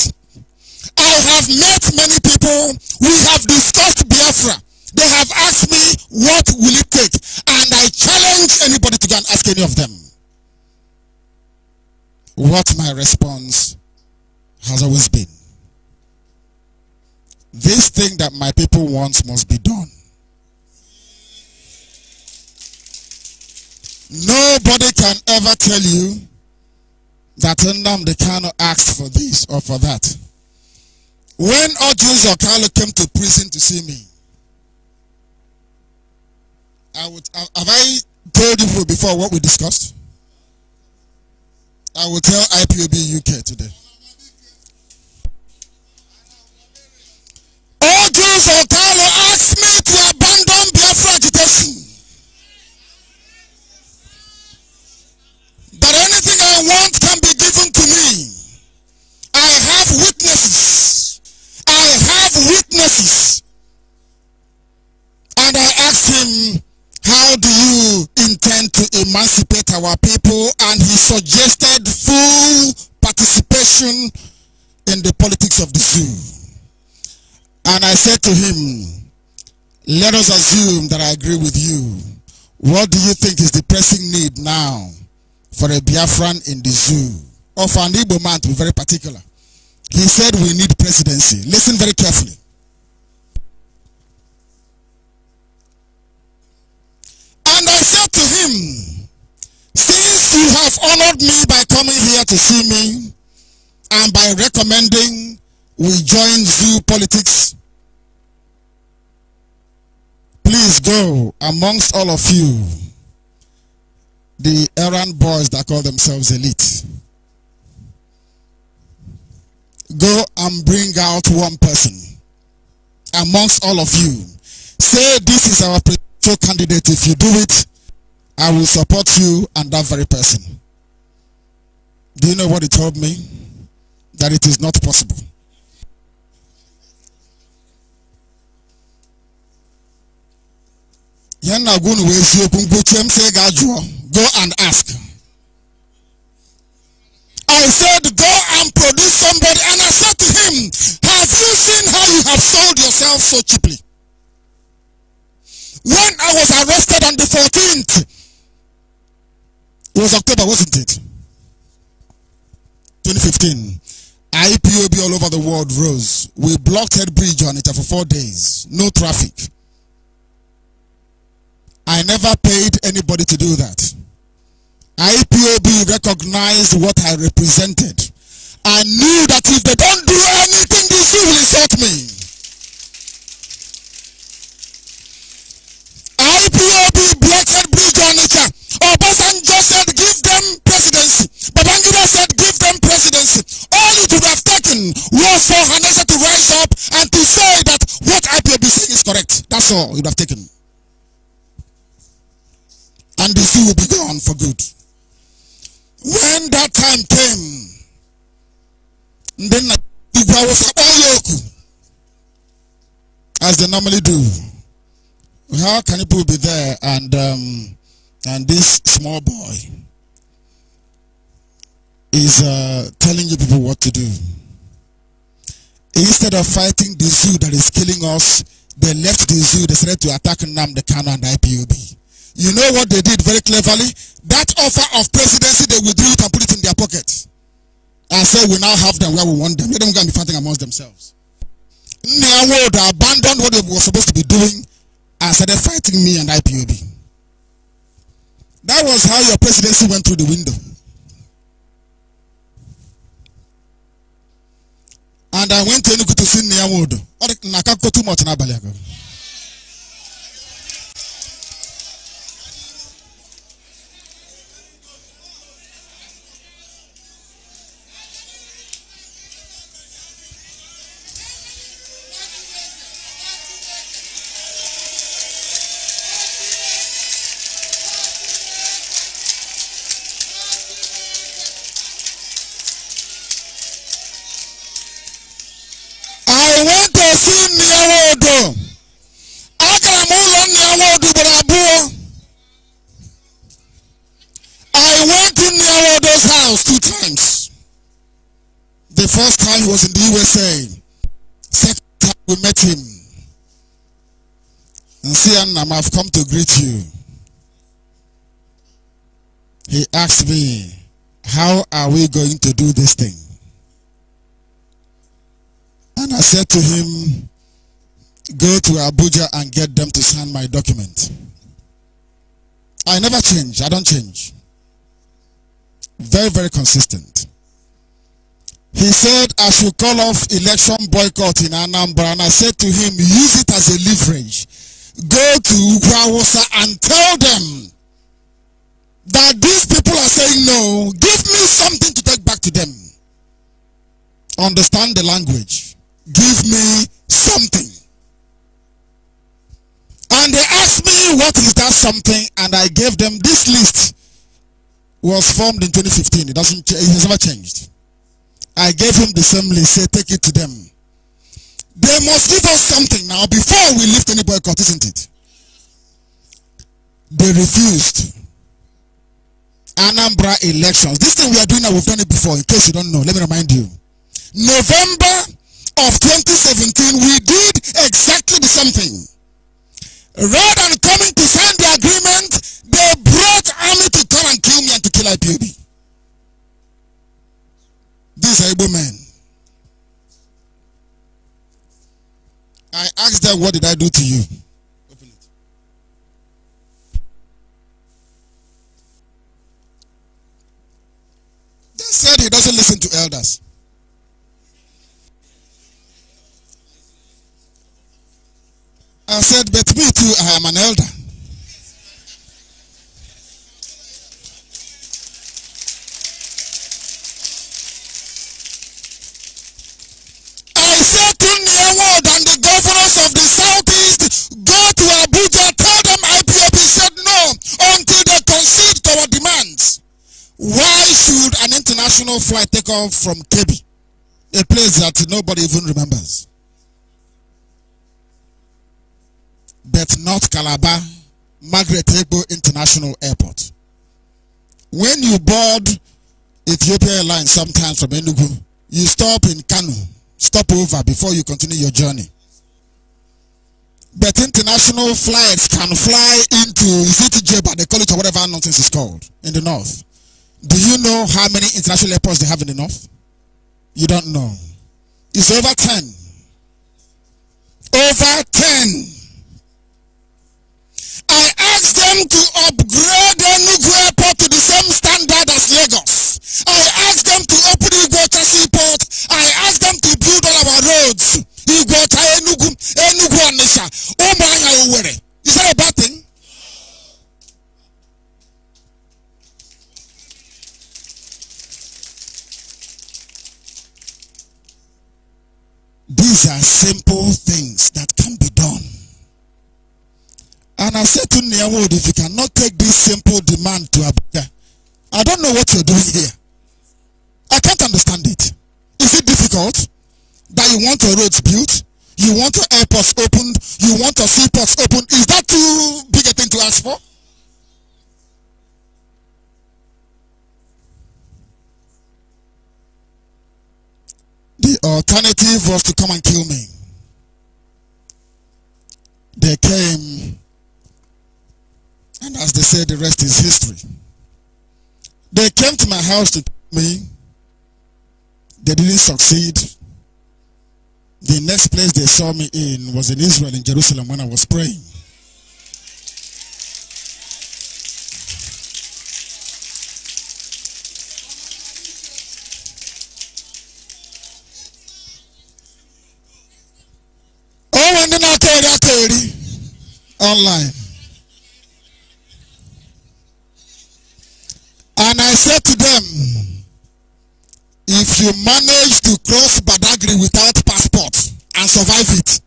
I have met many people. We have discussed Biafra. They have asked me, what will it take? And I challenge anybody to go and ask any of them. What my response has always been. This thing that my people want must be done. Nobody can ever tell you that in them they cannot ask for this or for that. When or Kano came to prison to see me, I would uh, have I told you before what we discussed? I will tell IPOB UK today. or Kano And I asked him, how do you intend to emancipate our people? And he suggested full participation in the politics of the zoo. And I said to him, let us assume that I agree with you. What do you think is the pressing need now for a Biafran in the zoo? Or for an Igbo man to be very particular. He said we need presidency. Listen very carefully. followed me by coming here to see me and by recommending we join zoo politics. Please go amongst all of you, the errand boys that call themselves elite. Go and bring out one person amongst all of you. Say this is our presidential candidate. If you do it, I will support you and that very person. Do you know what he told me? That it is not possible. Go and ask. I said, Go and produce somebody. And I said to him, Have you seen how you have sold yourself so cheaply? When I was arrested on the 14th, it was October, wasn't it? 2015. IPOB all over the world rose. We blocked Head Bridge on it for four days. No traffic. I never paid anybody to do that. IPOB recognized what I represented. I knew that if they don't do anything, this will insult me. IPOB blocked agency. All it would have taken was for Hannah to rise up and to say that what IPAB is saying is correct. That's all it would have taken. And the zoo will be gone for good. When that time came, then I was all yoku, as they normally do. How can people be there and um, and this small boy? is uh, telling you people what to do. Instead of fighting the zoo that is killing us, they left the zoo, they started to attack Nam, the Kano, and the IPOB. You know what they did very cleverly? That offer of presidency, they withdrew it and put it in their pocket. And said, so we now have them where we want them. Let them go and be fighting amongst themselves. Nyawo, world abandoned what they were supposed to be doing and started fighting me and IPOB. That was how your presidency went through the window. And I went to Enugu to see Nia Wood. Ọ dị na aka nkọ too much n'abalị agha. First time was in the USA. Second time we met him. And see, Annam, I've come to greet you. He asked me, how are we going to do this thing? And I said to him, go to Abuja and get them to sign my document. I never change. I don't change. Very, very consistent. He said, I should call off election boycott in Anambra. And I said to him, use it as a leverage. Go to Ukwawosa and tell them that these people are saying no. Give me something to take back to them. Understand the language. Give me something. And they asked me, what is that something? And I gave them this list was formed in 2015. It doesn't, it has never changed. I gave him the same list. Say, take it to them. They must give us something now before we lift any boycott, isn't it? They refused. Anambra elections. This thing we are doing now, we've done it before. In case you don't know, let me remind you. November of 2017, we did exactly the same thing. Rather than coming to sign the agreement, they brought army to come and kill me and to kill IPOB. These are Igbo men. I asked them, What did I do to you? Open it. They said he doesn't listen to elders. I said, But me too, I am an elder. should an international flight take off from Kebi, a place that nobody even remembers? But not Calabar, Margaret Egbo International Airport. When you board Ethiopia Airlines sometimes from Enugu, you stop in Kanu, stop over before you continue your journey. But international flights can fly into Zitijeba, they call it or whatever nonsense is called, in the north. Do you know how many international airports they have in the north? You don't know. It's over 10. Over 10. I asked them to upgrade Enugu Airport to the same standard as Lagos. I asked them to open Iguota Seaport. I asked them to build all our roads. Iguota Enugu, Enugu Anisha, I Uwere. simple things that can be done. And I said to Niawood, if you cannot take this simple demand to Abuja, I don't know what you're doing here. I can't understand it. Is it difficult that you want your roads built? You want your airports opened? You want your seaports opened? Is that too big a thing to ask for? The alternative was to come and kill me. They came, and as they said, the rest is history. They came to my house to kill me. They didn't succeed. The next place they saw me in was in Israel, in Jerusalem, when I was praying. online. And I said to them, if you manage to cross Badagry without passport and survive it,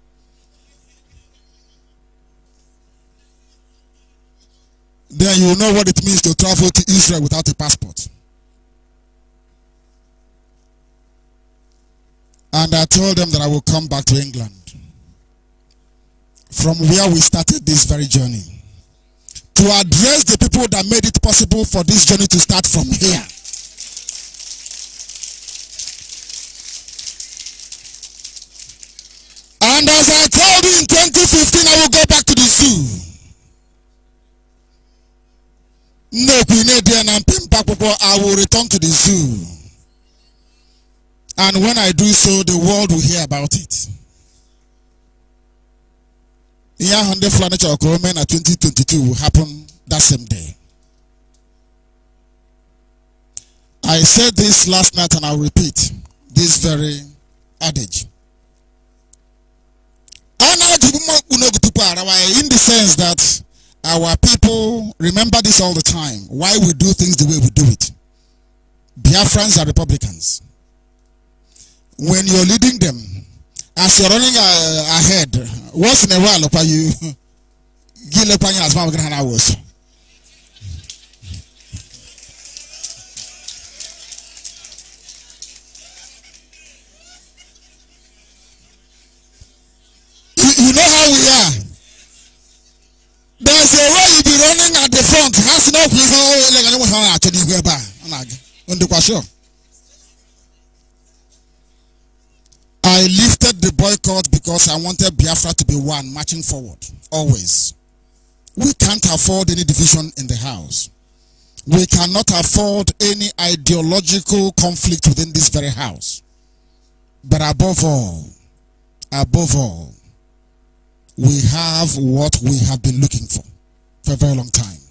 then you know what it means to travel to Israel without a passport. And I told them that I will come back to England from where we started this very journey to address the people that made it possible for this journey to start from here. And as I told you in 2015, I will go back to the zoo. I will return to the zoo. And when I do so, the world will hear about it. Yahande Furniture in 2022 will happen that same day. I said this last night and I'll repeat this very adage. In the sense that our people remember this all the time, why we do things the way we do it. Biafrans are Republicans. When you're leading them, as you're running uh, ahead, once in a while, pa you [LAUGHS] give gile pa as mama gana was. You know how we are. There's a way you be running at the front. Has no place. Oh, like I don't want to actually go back. I'm not. I'm I lifted the boycott because I wanted Biafra to be one, marching forward, always. We can't afford any division in the house. We cannot afford any ideological conflict within this very house. But above all, above all, we have what we have been looking for for a very long time.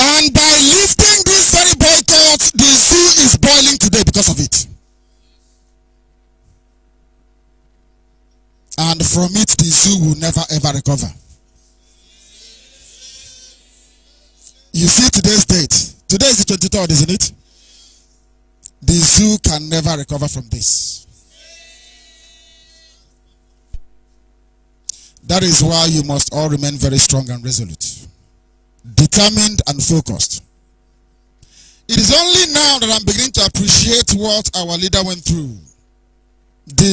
And by lifting this very boycott, the zoo is boiling today because of it. And from it, the zoo will never ever recover. You see today's date. Today is the 23rd, isn't it? The zoo can never recover from this. That is why you must all remain very strong and resolute, determined and focused. It is only now that I'm beginning to appreciate what our leader went through. To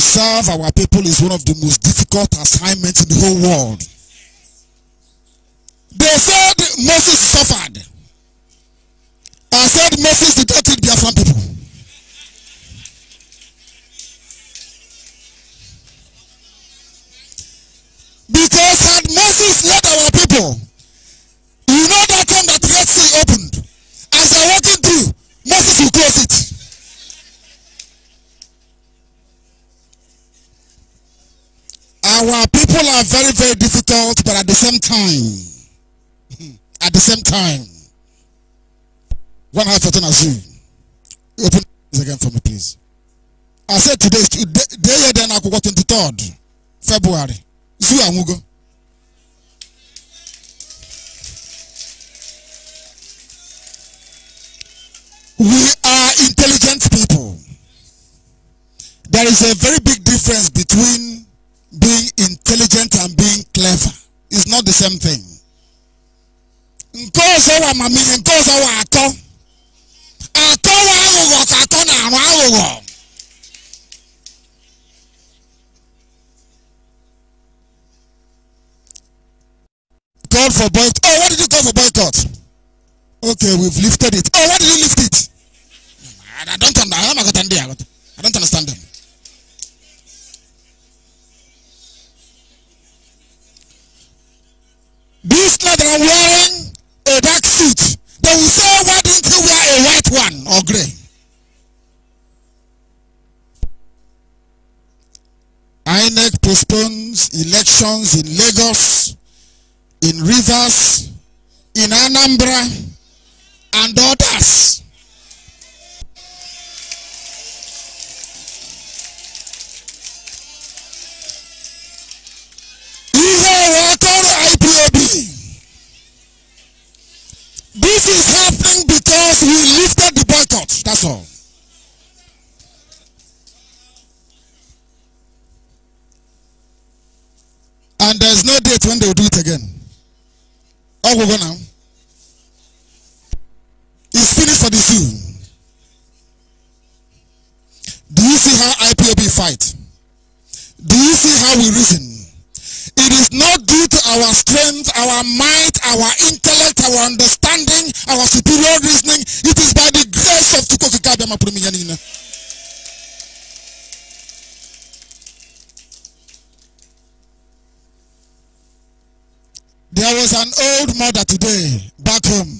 serve our people is one of the most difficult assignments in the whole world. They said Moses suffered. I said Moses did not treat Biafran people. Because had Moses led our people, Our people are very, very difficult, but at the same time, [LAUGHS] at the same time, one heart as you. Open this again for me, please. I said today, day then I go 23rd February. Zoo Amugo. We are intelligent people. There is a very big difference between being intelligent and being clever is not the same thing. nke ọzọ wa mamiri nke atọ atọ wa aghụghọ atọ na-arụ aghụghọ called for boycott. Oh, what did you call for boycott? Okay, we've lifted it. Oh, why did you lift it? I don't understand. I don't understand them. This lad are wearing a dark suit. They will say, why didn't you wear a white one or gray? INEC postpones elections in Lagos, in Rivers, in Anambra, and others. Ihe This is happening because we lifted the boycott. That's all. And there's no date when they'll do it again. All we go now. It's finished for the zoo. Do you see how IPOB fight? Do you see how we reason? It is not due to our strength, our might, our intellect, our understanding reasoning, our superior reasoning. It is by the grace of Tukokika Bema Prumiyanina. There was an old mother today back home.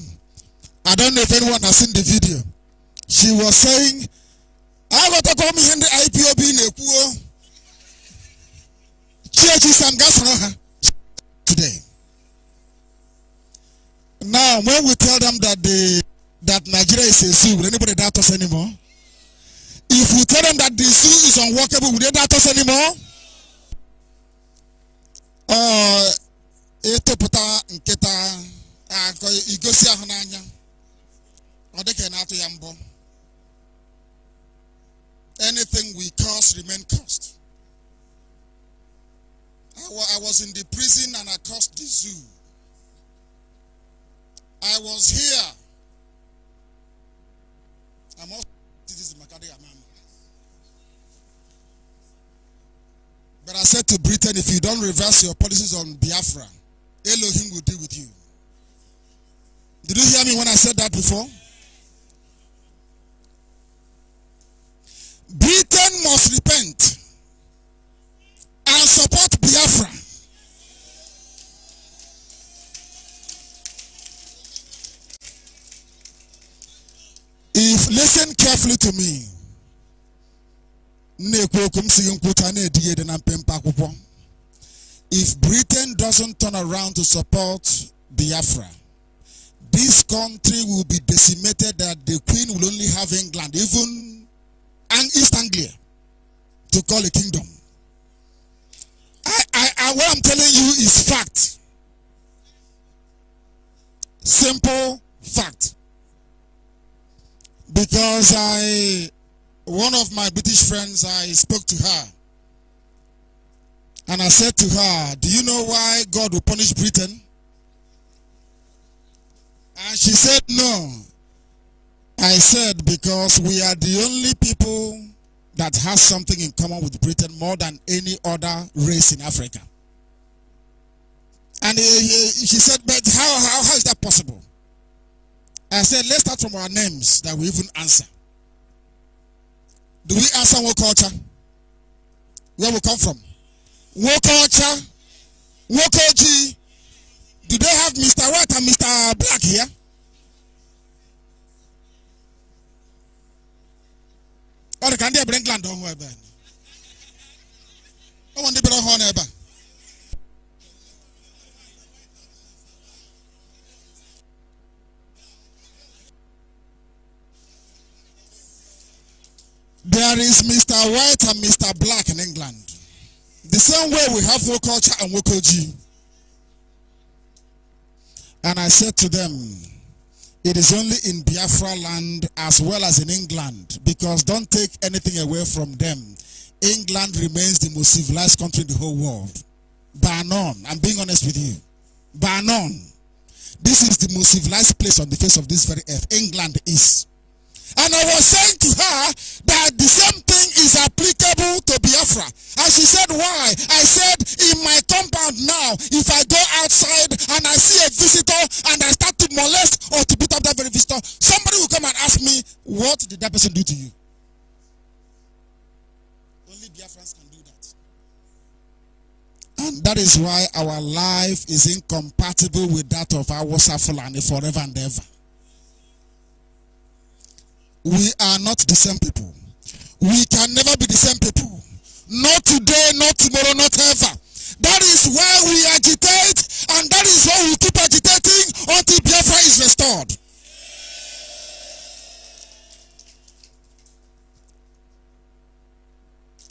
I don't know if anyone has seen the video. She was saying, I got to come here in the IPOB in a Church is and gas today. Now, when we tell them that the that Nigeria is a zoo, will anybody doubt us anymore? If we tell them that the zoo is unworkable, will they doubt us anymore? Uh, akọ ah, igosi ị anything we cost remain cost I was in the prison and I cost the zoo I was here. I'm also citizen Makadi But I said to Britain, if you don't reverse your policies on Biafra, Elohim will deal with you. Did you hear me when I said that before? Britain must repent. If listen carefully to me. If Britain doesn't turn around to support Biafra, this country will be decimated that the Queen will only have England, even and East Anglia, to call a kingdom. I, I, I, what I'm telling you is fact. Simple fact because I, one of my British friends, I spoke to her. And I said to her, do you know why God will punish Britain? And she said, no. I said, because we are the only people that has something in common with Britain more than any other race in Africa. And he, he, she said, but how, how, how is that possible? I said, let's start from our names that we even answer. Do we answer what culture? Where we come from? What culture? What culture? Do they have Mr. White and Mr. Black here? Or can they bring land on where? I want to bring on There is Mr. White and Mr. Black in England. The same way we have Wokocha and Wokoji. And I said to them, it is only in Biafra land as well as in England because don't take anything away from them. England remains the most civilized country in the whole world. By none. I'm being honest with you. By none. This is the most civilized place on the face of this very earth. England is. And I was saying to her that the same thing is applicable to Biafra. And she said, why? I said, in my compound now, if I go outside and I see a visitor and I start to molest or to beat up that very visitor, somebody will come and ask me, what did that person do to you? Only Biafrans can do that. And that is why our life is incompatible with that of our Safulani forever and ever we are not the same people. We can never be the same people. Not today, not tomorrow, not ever. That is why we agitate, and that is why we keep agitating until Biafra is restored.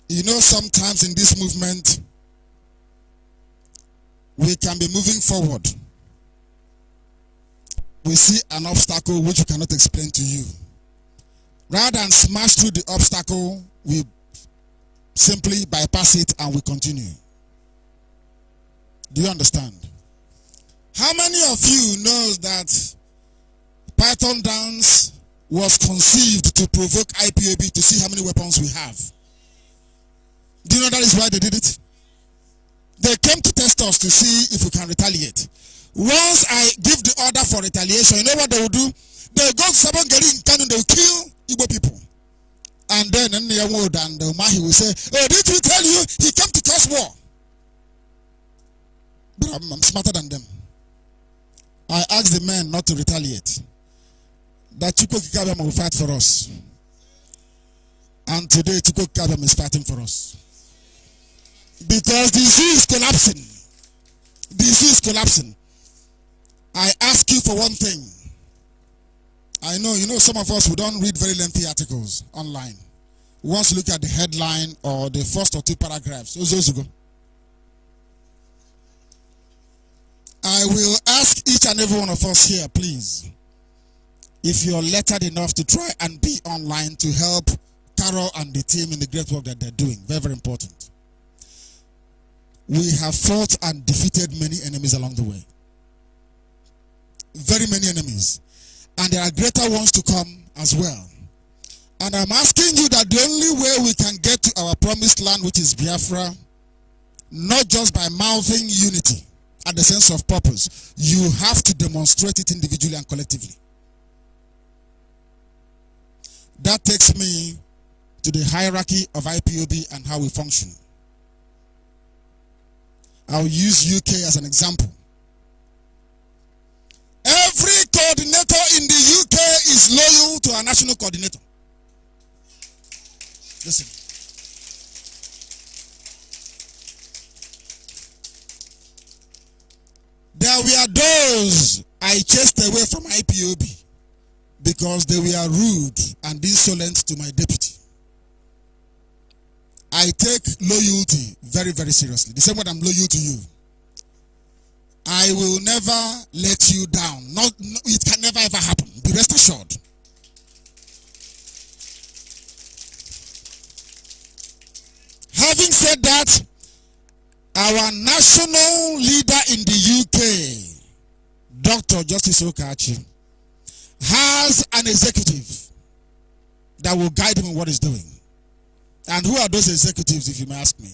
You know, sometimes in this movement, we can be moving forward. We see an obstacle which we cannot explain to you. Rather than smash through the obstacle, we simply bypass it and we continue. Do you understand? How many of you knows that Python Dance was conceived to provoke IPAB to see how many weapons we have? Do you know that is why they did it? They came to test us to see if we can retaliate. Once I give the order for retaliation, you know what they will do? They go to Sabon in Kano, they will kill Igbo people. And then in the world, and the uh, Mahi will say, Oh, did he tell you he came to cause war? But I'm, I'm smarter than them. I asked the men not to retaliate. That Chukwu Kikabam will fight for us. And today Chukwu Kikabam is fighting for us. Because the is collapsing. The is collapsing. I ask you for one thing. I know, you know, some of us who don't read very lengthy articles online. We want to look at the headline or the first or two paragraphs. Those, those go. I will ask each and every one of us here, please, if you're lettered enough to try and be online to help Carol and the team in the great work that they're doing. Very, very important. We have fought and defeated many enemies along the way. Very many enemies. And there are greater ones to come as well. And I'm asking you that the only way we can get to our promised land, which is Biafra, not just by mouthing unity and the sense of purpose, you have to demonstrate it individually and collectively. That takes me to the hierarchy of IPOB and how we function. I'll use UK as an example. Every coordinator is loyal to our national coordinator. Listen. There were those I chased away from IPOB because they were rude and insolent to my deputy. I take loyalty very, very seriously. The same way I'm loyal to you. I will never let you down. Not, it can never ever happen. Be rest assured. Having said that, our national leader in the UK, Dr. Justice Okachi, has an executive that will guide him in what he's doing. And who are those executives, if you may ask me?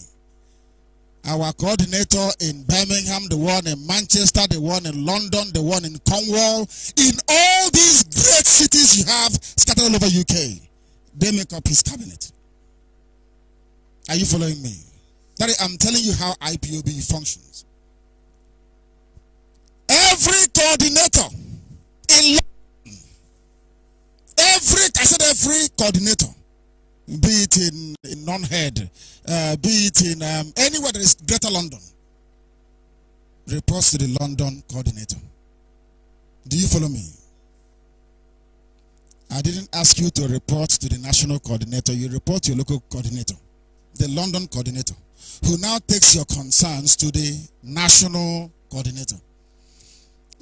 our coordinator in Birmingham, the one in Manchester, the one in London, the one in Cornwall, in all these great cities you have scattered all over UK, they make up his cabinet. Are you following me? That is, I'm telling you how IPOB functions. Every coordinator in London, every I said every coordinator be it in, in Nonhead, uh, be it in um, anywhere that is Greater London, reports to the London coordinator. Do you follow me? I didn't ask you to report to the national coordinator. You report to your local coordinator, the London coordinator, who now takes your concerns to the national coordinator.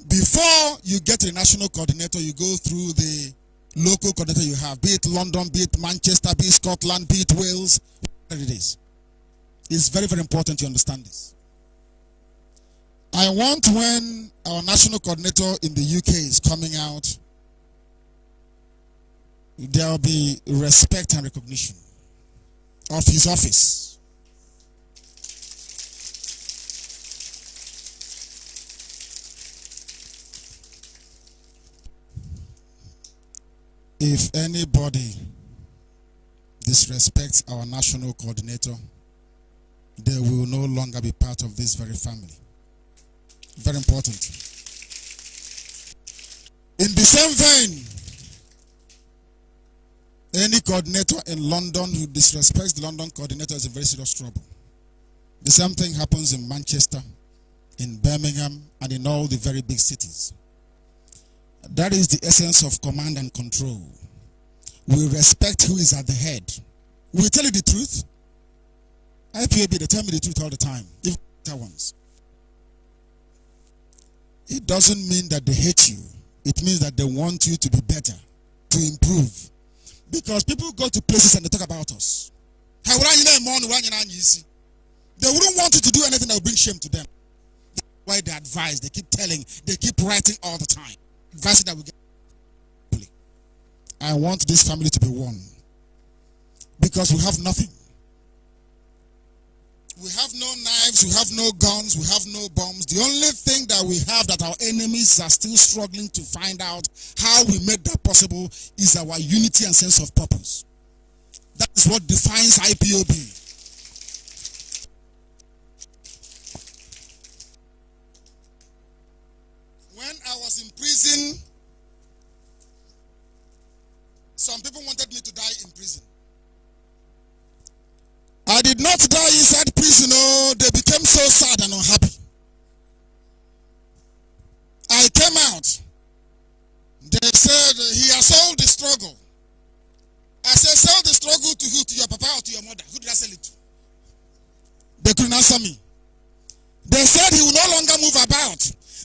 Before you get the national coordinator, you go through the local coordinator you have, be it London, be it Manchester, be it Scotland, be it Wales, whatever it is. It's very, very important you understand this. I want when our national coordinator in the UK is coming out, there will be respect and recognition of his office If anybody disrespects our national coordinator, they will no longer be part of this very family. Very important. In the same vein, any coordinator in London who disrespects the London coordinator is in very serious trouble. The same thing happens in Manchester, in Birmingham, and in all the very big cities. That is the essence of command and control. We respect who is at the head. We tell you the truth. IPAB, they tell me the truth all the time, even the ones. It doesn't mean that they hate you. It means that they want you to be better, to improve. Because people go to places and they talk about us. They wouldn't want you to do anything that would bring shame to them. That's why they advise, they keep telling, they keep writing all the time that we get. I want this family to be one because we have nothing. We have no knives, we have no guns, we have no bombs. The only thing that we have that our enemies are still struggling to find out how we made that possible is our unity and sense of purpose. That is what defines IPOB. When I was in prison. Some people wanted me to die in prison. I did not die inside prison. Oh, they became so sad and unhappy. I came out. They said, he has sold the struggle. I said, sell the struggle to who? To your papa or to your mother? Who did I sell it to? They couldn't answer me. They said he will no longer move about.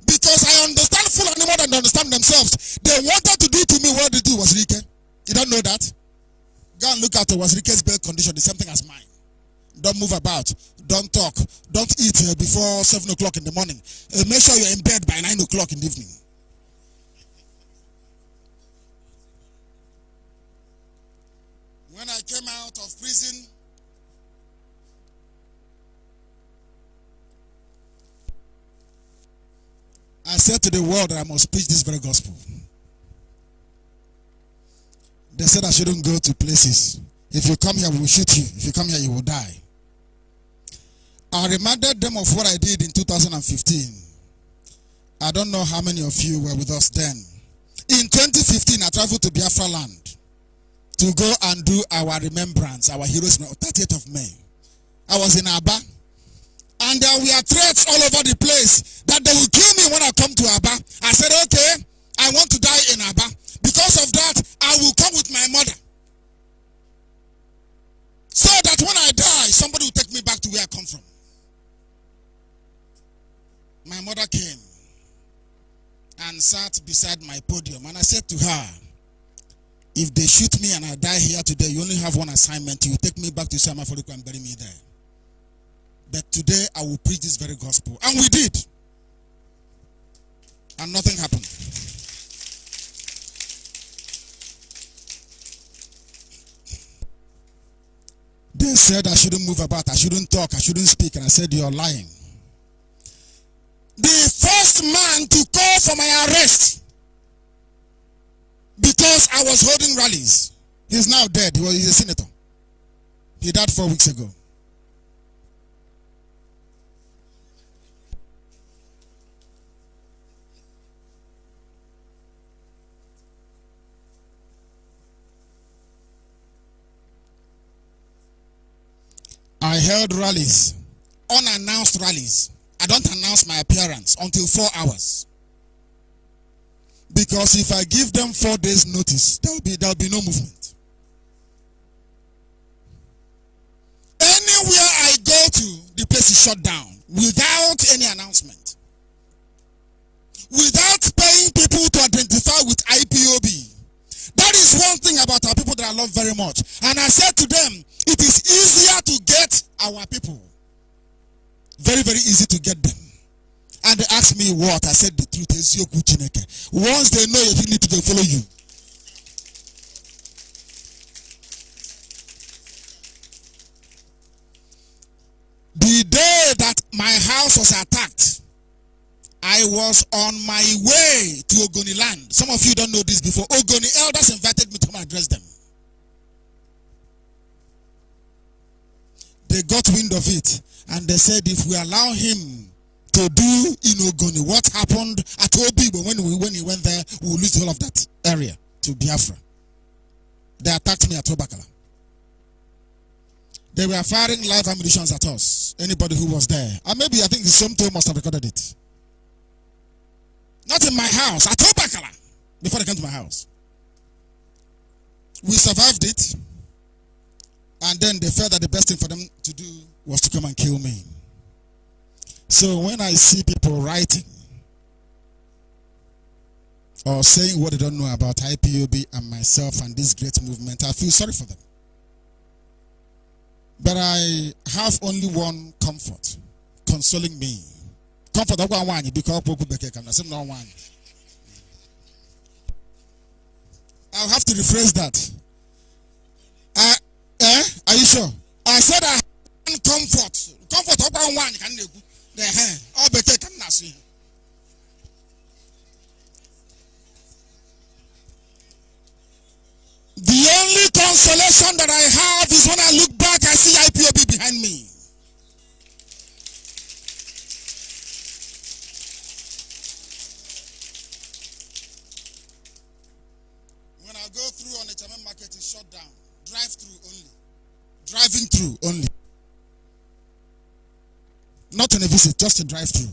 Because I understand full animal and understand themselves. They wanted to do to me what they do was Rike. You don't know that? Go and look at it. Was Rike's birth condition the same thing as mine? Don't move about. Don't talk. Don't eat uh, before 7 o'clock in the morning. Uh, make sure you're in bed by 9 o'clock in the evening. When I came out of prison, I said to the world that I must preach this very gospel. They said I shouldn't go to places. If you come here, we will shoot you. If you come here, you will die. I reminded them of what I did in 2015. I don't know how many of you were with us then. In 2015, I traveled to Biafra land to go and do our remembrance, our heroes, 30th of May. I was in Aba. And there uh, were threats all over the place that they will kill me when I come to Abba. I said, okay, I want to die in Abba. Because of that, I will come with my mother. So that when I die, somebody will take me back to where I come from. My mother came and sat beside my podium. And I said to her, if they shoot me and I die here today, you only have one assignment. You take me back to Samaforico and bury me there that today I will preach this very gospel. And we did. And nothing happened. They said I shouldn't move about, I shouldn't talk, I shouldn't speak. And I said, You're lying. The first man to call for my arrest because I was holding rallies. He's now dead. He was, a senator. He died four weeks ago. I held rallies, unannounced rallies. I don't announce my appearance until four hours. Because if I give them four days notice, there'll be, there'll be no movement. Anywhere I go to, the place is shut down without any announcement. Without paying people to identify with IPOB. That is one thing about our people that I love very much. And I said to them, it is easier to get our people. Very, very easy to get them. And they asked me what. I said the truth is your good Once they know your dignity, they follow you. The day that my house was attacked, I was on my way to Ogoni land. Some of you don't know this before. Ogoni elders invited me to come address them. they got wind of it and they said, if we allow him to do Inogoni, what happened at Obibo when, we, when he went there, we will lose all of that area to Biafra. They attacked me at Obakala. They were firing live ammunition at us, anybody who was there. And maybe I think the same must have recorded it. Not in my house, at Obakala, before they came to my house. We survived it. And then they felt that the best thing for them to do was to come and kill me. So when I see people writing or saying what they don't know about IPOB and myself and this great movement, I feel sorry for them. But I have only one comfort consoling me. Comfort of one because I'll have to rephrase that. I, Eh? Are you sure? I said I have comfort. Comfort up one can you the eh, eh. I'll be taken as you. The only consolation that I have is when I look back, I see IPOB behind me. When I go through on the German market, it's shut down. Drive through only. Driving through only. Not on a visit, just a drive through.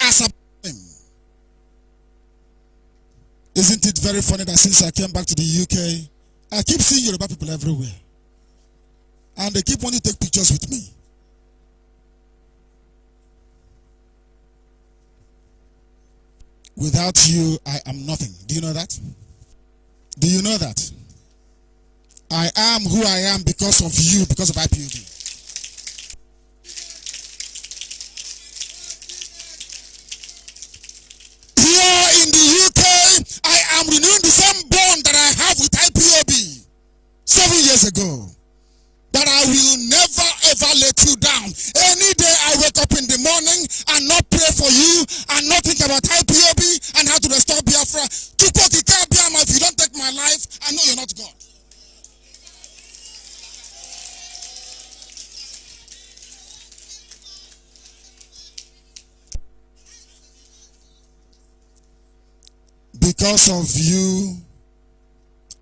As a time. Isn't it very funny that since I came back to the UK, I keep seeing Yoruba people everywhere. And they keep wanting to take pictures with me. Without you, I am nothing. Do you know that? Do you know that? I am who I am because of you, because of Here in the UK, I am renewing the same bond that I have with IPOB seven years ago. That I will never ever let you down. Any day I wake up in the morning and not pray for you and not think about IPOB and how to restore Biafra, it. Because of you,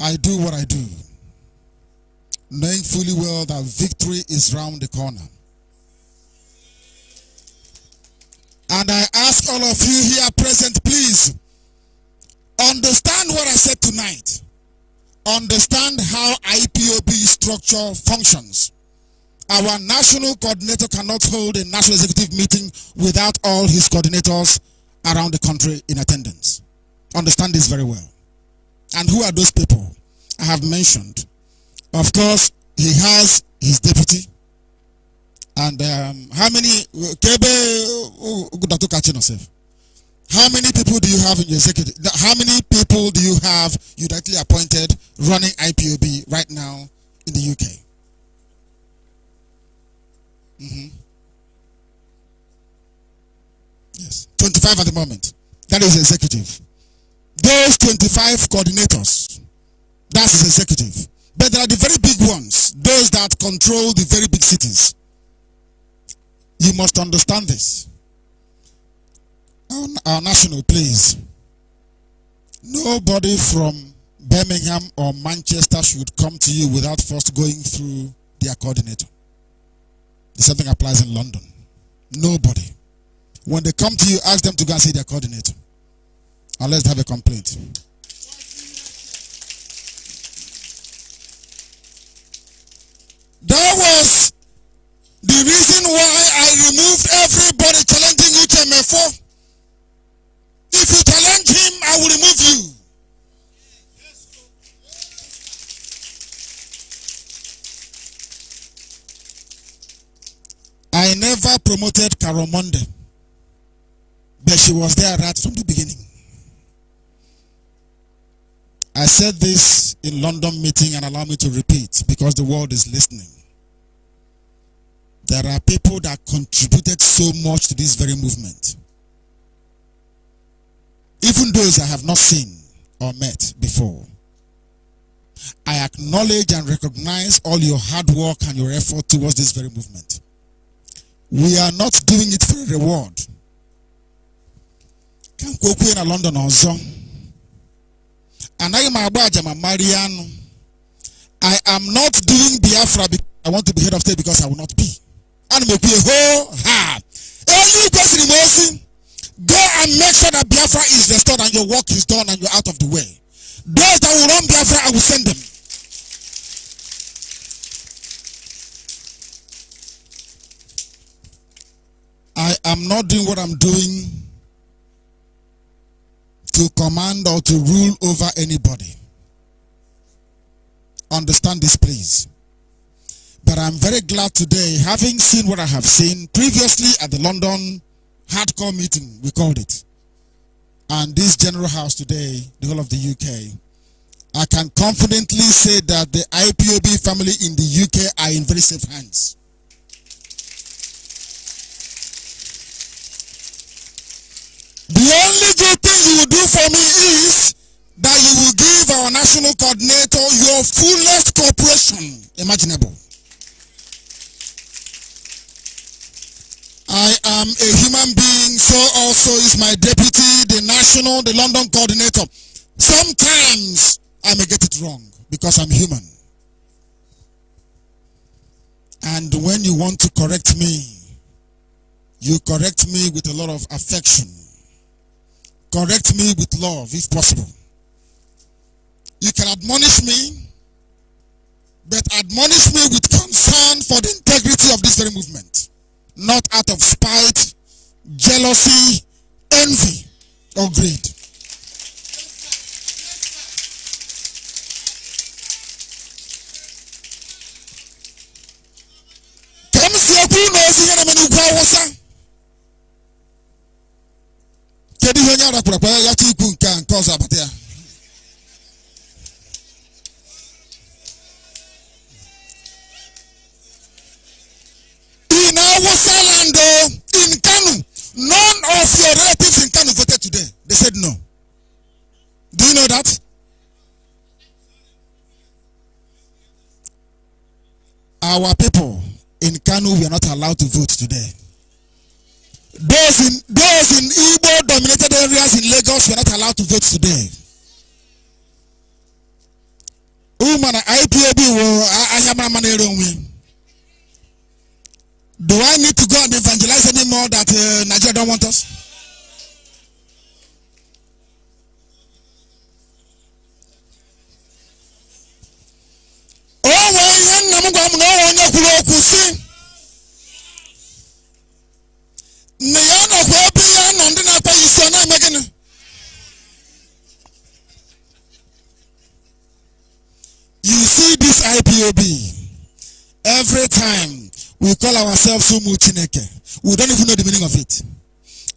I do what I do, knowing fully well that victory is round the corner. And I ask all of you here present, please understand what I said tonight. Understand how IPOB structure functions. Our national coordinator cannot hold a national executive meeting without all his coordinators around the country in attendance. Understand this very well. And who are those people I have mentioned? Of course, he has his deputy. And um, how many oh, oh, how many people do you have in your executive? How many people do you have you directly appointed running IPOB right now in the UK? Mm -hmm. Yes, 25 at the moment. That is executive those 25 coordinators, that's executive. But there are the very big ones, those that control the very big cities. You must understand this. On our national, please. Nobody from Birmingham or Manchester should come to you without first going through their coordinator. The same thing applies in London. Nobody. When they come to you, ask them to go and see their coordinator. And let's have a complaint. That was the reason why I removed everybody challenging UTMF4. If you challenge him, I will remove you. I never promoted Karomonde, but she was there right from the beginning. I said this in London meeting and allow me to repeat because the world is listening. There are people that contributed so much to this very movement. Even those I have not seen or met before. I acknowledge and recognize all your hard work and your effort towards this very movement. We are not doing it for a reward. Can London and I am aja ma marie i am not doing biafra because i want to be head of state because i will not be And m ekwu ho ha eluigwe siri m ozi go and make sure that biafra is restored and your work is done and you're out of the way those that will run biafra i will send them I am not doing what I'm doing to command or to rule over anybody. Understand this, please. But I'm very glad today, having seen what I have seen previously at the London hardcore meeting, we called it, and this general house today, the whole of the UK, I can confidently say that the IPOB family in the UK are in very safe hands. The only thing you will do for me is that you will give our national coordinator your fullest cooperation imaginable. I am a human being, so also is my deputy, the national, the London coordinator. Sometimes I may get it wrong because I'm human. And when you want to correct me, you correct me with a lot of affection. Correct me with love if possible. You can admonish me, but admonish me with concern for the integrity of this very movement, not out of spite, jealousy, envy, or greed. Come see a kedu ihe onye arapụrapụ ya yacha ikwu nke a in our land oh, in Kanu none of your relatives in Kanu voted today they said no do you know that our people in Kanu were not allowed to vote today Those in those in Igbo dominated areas in Lagos were not allowed to vote today. Woman IPOB wo Ayamama Neronwe. Do I need to go and evangelize anymore that uh, Nigeria don't want us? O nwere ihe nna m gwa m na o nwere onye kwuru okwu si every time we call ourselves "Sumuchineke," we don't even know the meaning of it.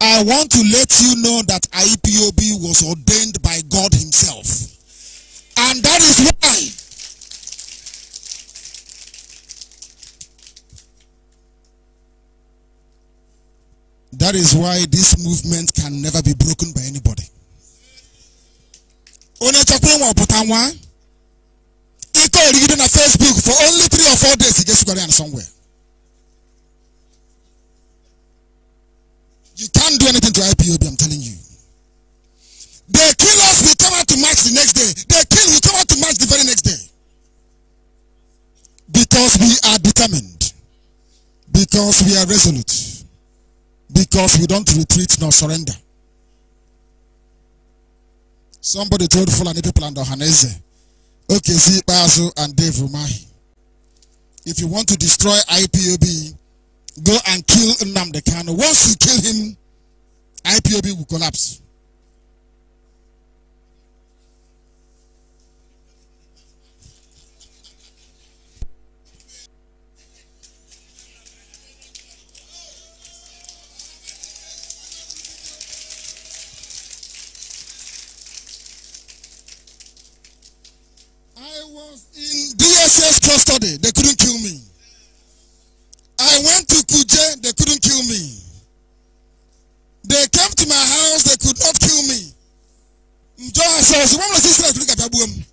I want to let you know that IPOB was ordained by God Himself. And that is why That is why this movement can never be broken by anybody story within a Facebook for only three or four days, he gets Korean somewhere. You can't do anything to IPOB, I'm telling you. They kill us, we come out to march the next day. They kill, we come out to march the very next day. Because we are determined. Because we are resolute. Because we don't retreat nor surrender. Somebody told Fulani people and Ohaneze Okezi Basu, and Dave Rumahi. If you want to destroy IPOB, go and kill Nnamdi Once you kill him, IPOB will collapse. they couldn't kill me. I went to Kuje, they couldn't kill me. They came to my house, they could not kill me. John says, "What was this like at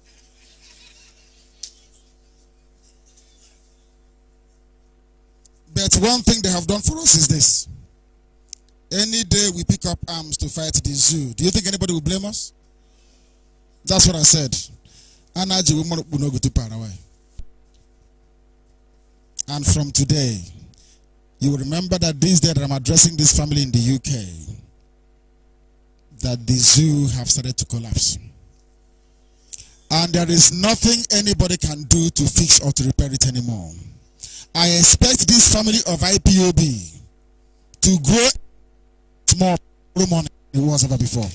But one thing they have done for us is this. Any day we pick up arms to fight the zoo, do you think anybody will blame us? That's what I said. Anaji will not go to Paraguay. And from today, you will remember that this day that I'm addressing this family in the UK, that the zoo have started to collapse. And there is nothing anybody can do to fix or to repair it anymore. I expect this family of IPOB to grow more money than it was ever before.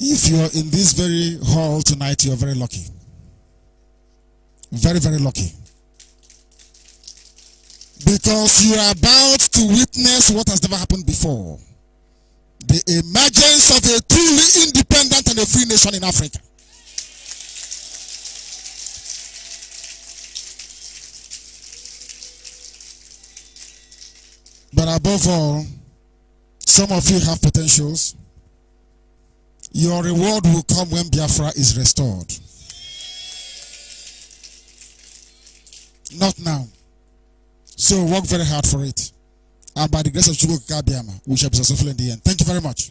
If you're in this very hall tonight, you're very lucky. Very, very lucky. Because you are about to witness what has never happened before. The emergence of a truly independent and a free nation in Africa. But above all, some of you have potentials. Your reward will come when Biafra is restored. Not now. So work very hard for it. And by the grace of God, we shall be successful in the end. Thank you very much.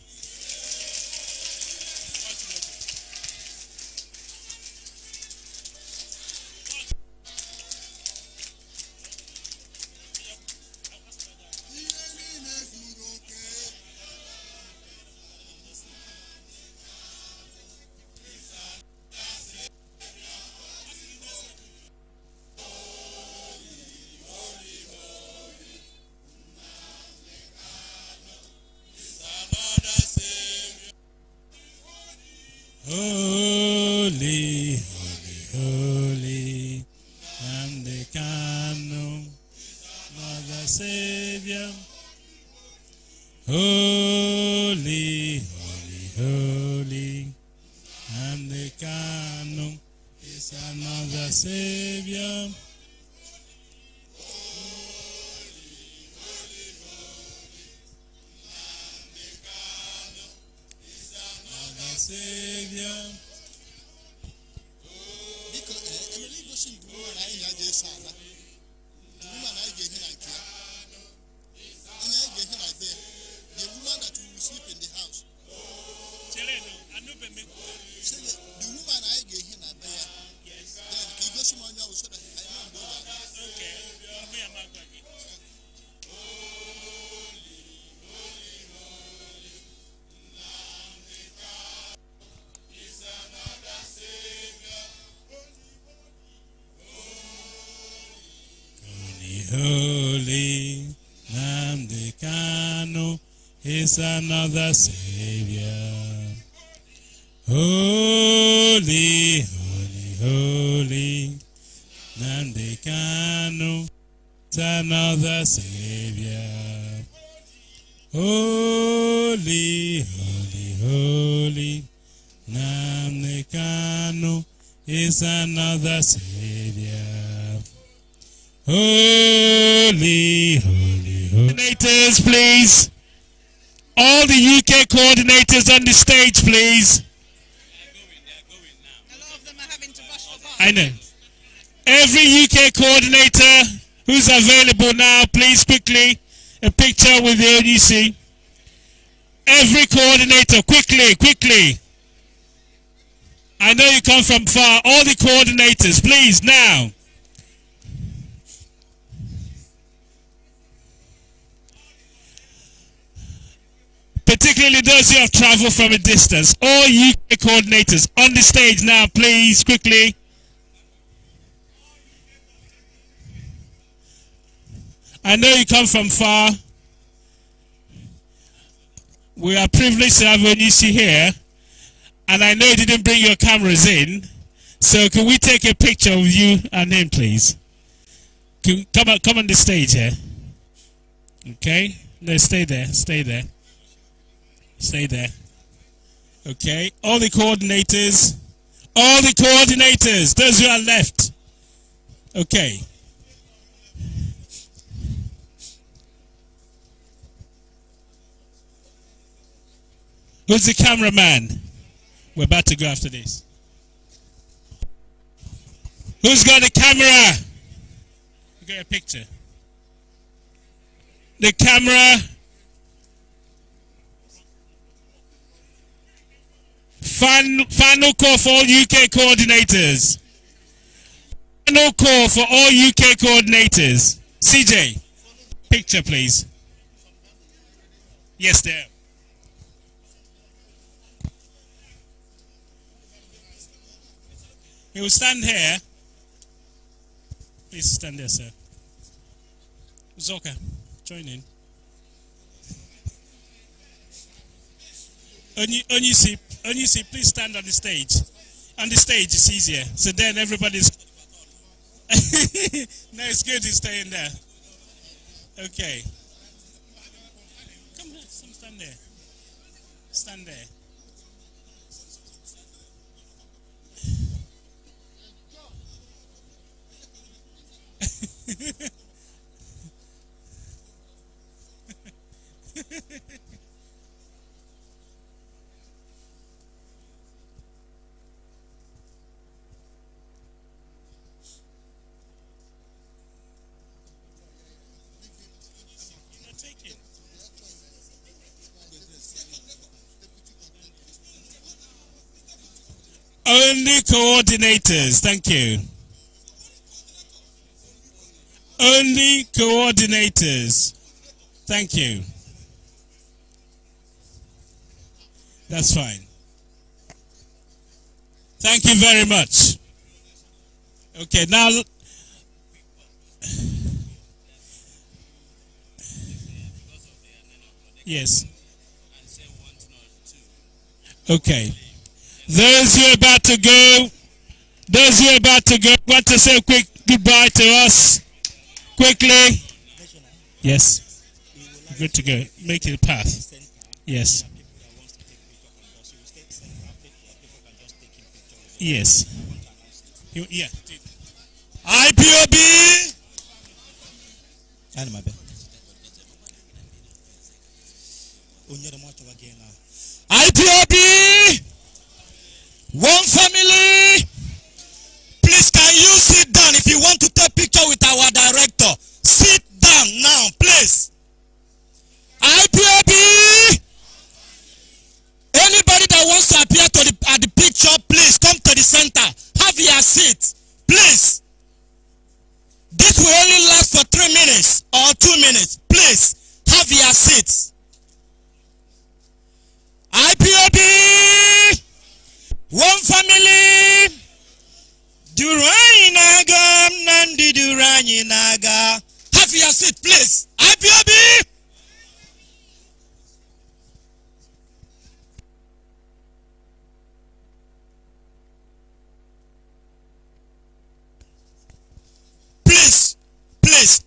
another Savior. Holy, holy, holy, Nandekano, another Savior. Holy, holy, holy, Namdekano is another Savior. Holy, coordinators on the stage, please. I know. Every UK coordinator who's available now, please quickly, a picture with the ADC. Every coordinator, quickly, quickly. I know you come from far. All the coordinators, please, now. particularly those who have traveled from a distance. All UK coordinators on the stage now, please, quickly. I know you come from far. We are privileged to have Onisi here. And I know you didn't bring your cameras in. So can we take a picture of you and him, please? Can, come, on, come on the stage here. Okay? No, stay there. Stay there. Stay there. Okay. All the coordinators. All the coordinators. Those who are left. Okay. Who's the cameraman? We're about to go after this. Who's got the camera? Get got a picture. The camera. Final call for all UK coordinators. Final call for all UK coordinators. CJ, picture please. Yes, there. He will stand here. Please stand there, sir. Zoka, join in. Only, only see and you see, please stand on the stage. On the stage, it's easier. So then everybody's. [LAUGHS] no, it's good to stay in there. Okay. Come here, stand there. Stand there. [LAUGHS] Only coordinators. Thank you. Only coordinators. Thank you. That's fine. Thank you very much. Okay, now. Yes. Okay. Those who are about to go, those who are about to go, want to say a quick goodbye to us quickly. Yes. Good to go. Make it a path. Yes. Yes. yeah. IPOB. And my bed. IPOB. One family. Please, can you sit down if you want to take picture with our director? Sit down now, please. IPAB. Anybody that wants to appear to the, at the picture, please come to the center. Have your seat, please. This will only last for three minutes or two minutes. Please, have your seats. Durham family. Duru anyị na-aga na ndị na-aga. Have your seat please. IPOB. Please, please.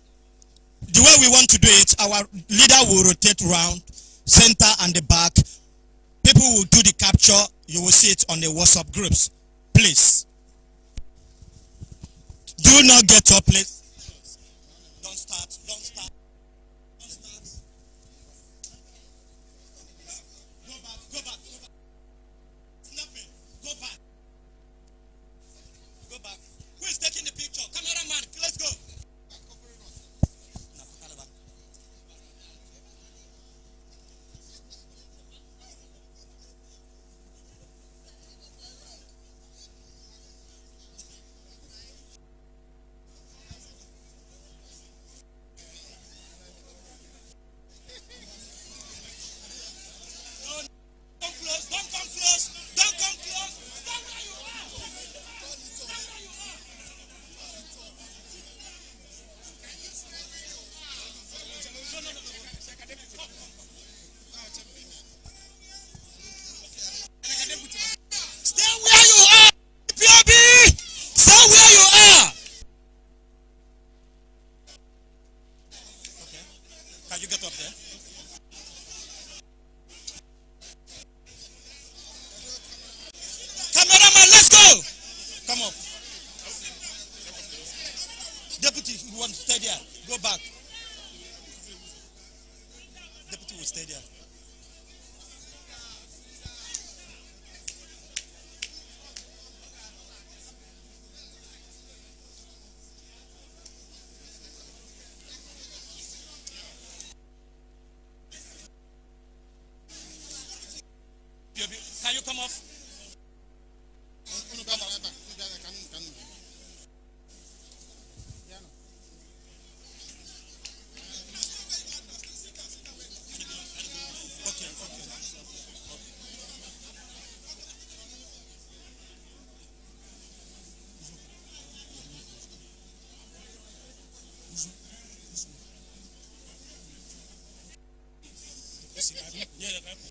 The way we want to do it, our leader will rotate round, center and the back people will do the capture. You will see it on the WhatsApp groups. Please. Do not get up, please. Yeah, that's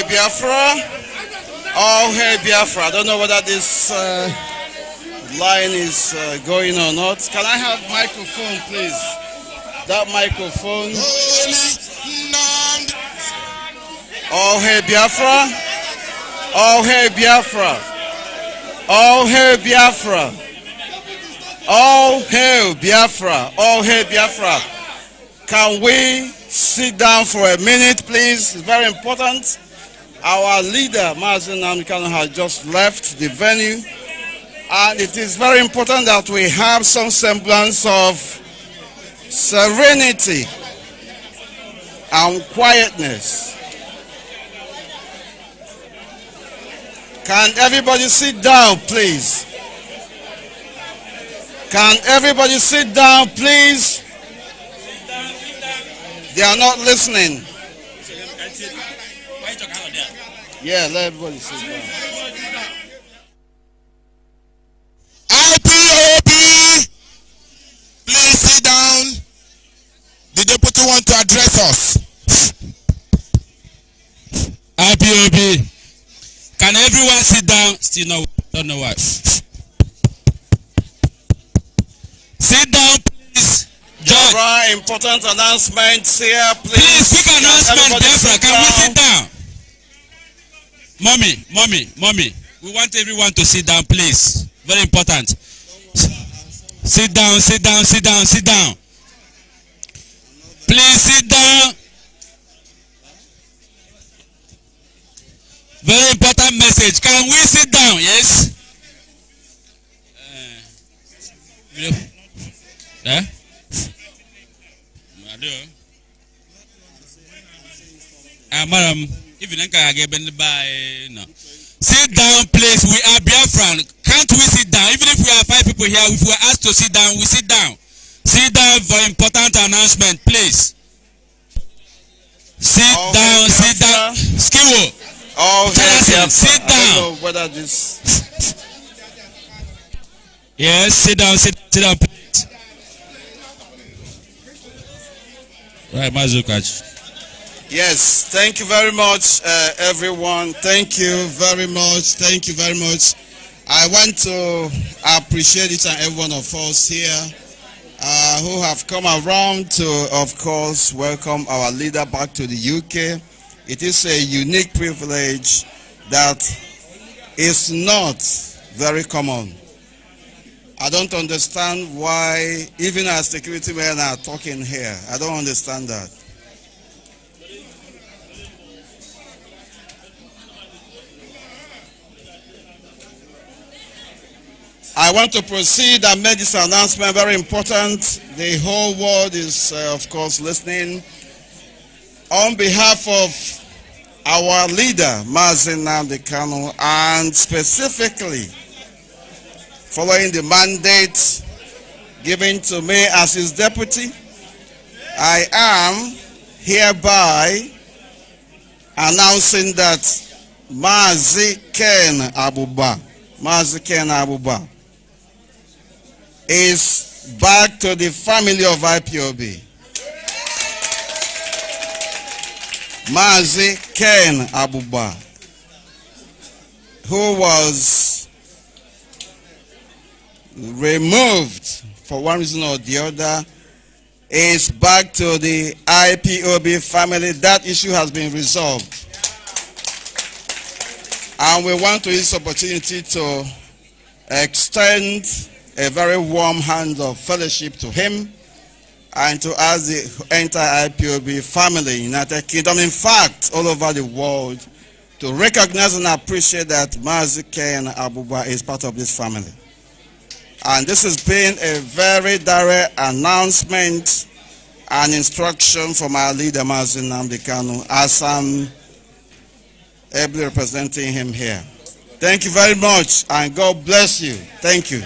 Hey Biafra! Oh, hey Biafra! I don't know whether this uh, line is uh, going or not. Can I have microphone, please? That microphone. Oh, hey Biafra! Oh, hey Biafra! Oh, hey Biafra! Oh, hey Biafra! Oh, hey Biafra! Can we sit down for a minute, please? It's very important. Our leader, Mazen Namikano, has just left the venue, and it is very important that we have some semblance of serenity and quietness. Can everybody sit down, please? Can everybody sit down, please? They are not listening. Yeah, let everybody sit down. IPOB, please sit down. The deputy want to address us. IPOB, can everyone sit down? Still no, don't know why. Sit down, please. Judge. There important announcements here, please. Please, quick announcement, Defra. Can we sit down? Mommy, mommy, mommy. We want everyone to sit down, please. Very important. Sit down, sit down, sit down, sit down. Please sit down. Very important message. Can we sit down? Yes. Uh, eh? Uh, madam. Ah, Even no. Sit down, please. We are Biafran. Can't we sit down? Even if we are five people here, if we are asked to sit down, we sit down. Sit down for important announcement, please. Sit All oh, down, Biafra. sit down. Skiwo. All Biafra. Sit down. I this... yes, sit down, sit, sit down, please. Right, Mazukachi. Yes, thank you very much, uh, everyone. Thank you very much. Thank you very much. I want to appreciate each and every one of us here uh, who have come around to, of course, welcome our leader back to the UK. It is a unique privilege that is not very common. I don't understand why, even our security men are talking here. I don't understand that. I want to proceed and make this announcement very important. The whole world is, uh, of course, listening. On behalf of our leader, Mazin Nandekano, and specifically following the mandate given to me as his deputy, I am hereby announcing that Mazi Ken Abuba, Mazi Ken Abuba, is back to the family of IPOB. Mazi Ken Abuba, who was removed for one reason or the other, is back to the IPOB family. That issue has been resolved. And we want to use opportunity to extend a very warm hand of fellowship to him and to us, the entire IPOB family, United Kingdom, in fact, all over the world, to recognize and appreciate that Mazi and Abuba is part of this family. And this has been a very direct announcement and instruction from our leader, Mazin Namdekanu, as I'm ably representing him here. Thank you very much, and God bless you. Thank you.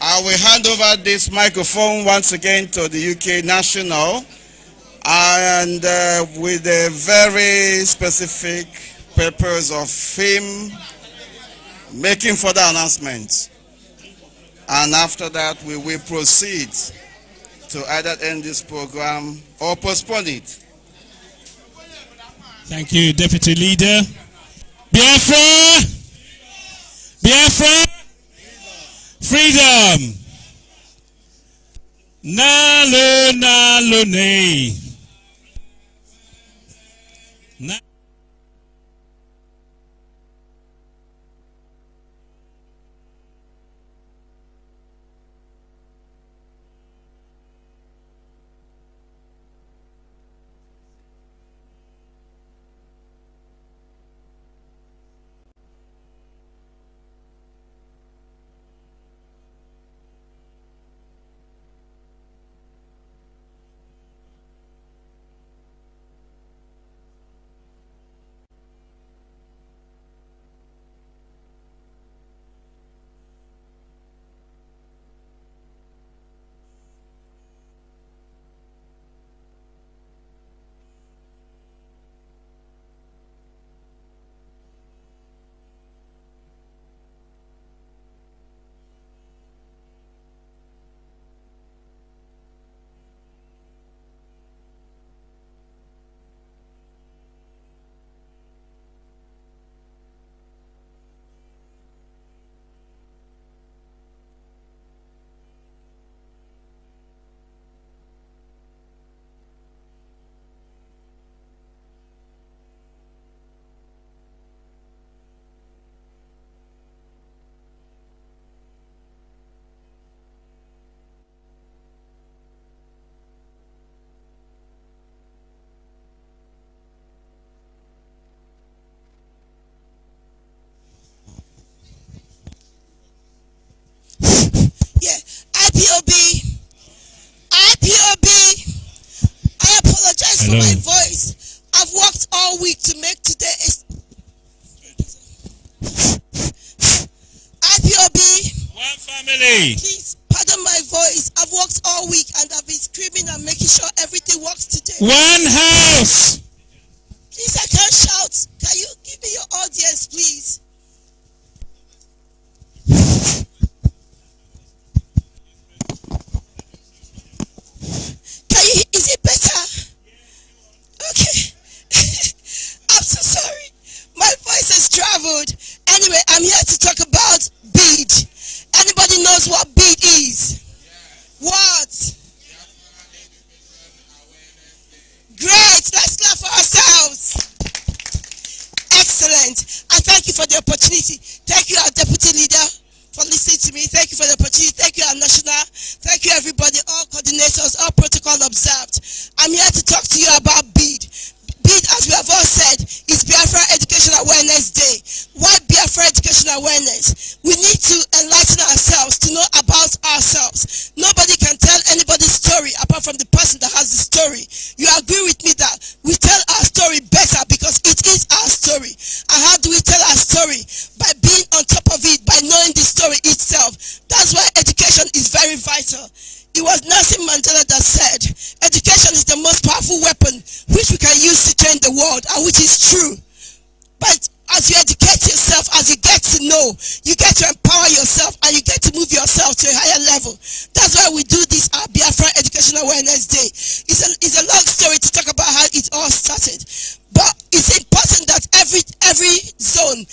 I will hand over this microphone once again to the UK National and uh, with a very specific purpose of him making further announcements. And after that, we will proceed to either end this program or postpone it. Thank you, Deputy Leader. Biafra! Biafra! freedom. Nalunalune. for my voice. I've worked all week to make today. IPOB. One family. Please pardon my voice. I've worked all week and I've been screaming and making sure everything works today. One house. you for the opportunity. Thank you, our deputy leader, for listening to me. Thank you for the opportunity. Thank you, our national. Thank you, everybody, all coordinators, all protocol observed. I'm here to talk to you about bid. Bid, as we have all said, is Biafra Education Awareness Day. Why Biafra Education Awareness? We need to enlighten ourselves to know about ourselves. Nobody can tell anybody's story apart from the person that has the story. You agree with me that we tell our story better It was Nelson Mandela that said, education is the most powerful weapon which we can use to change the world, and which is true. But as you educate yourself, as you get to know, you get to empower yourself and you get to move yourself to a higher level. That's why we do this our Biafra Education Awareness Day. It's a, it's a long story to talk about how it all started. But it's important that every, every zone,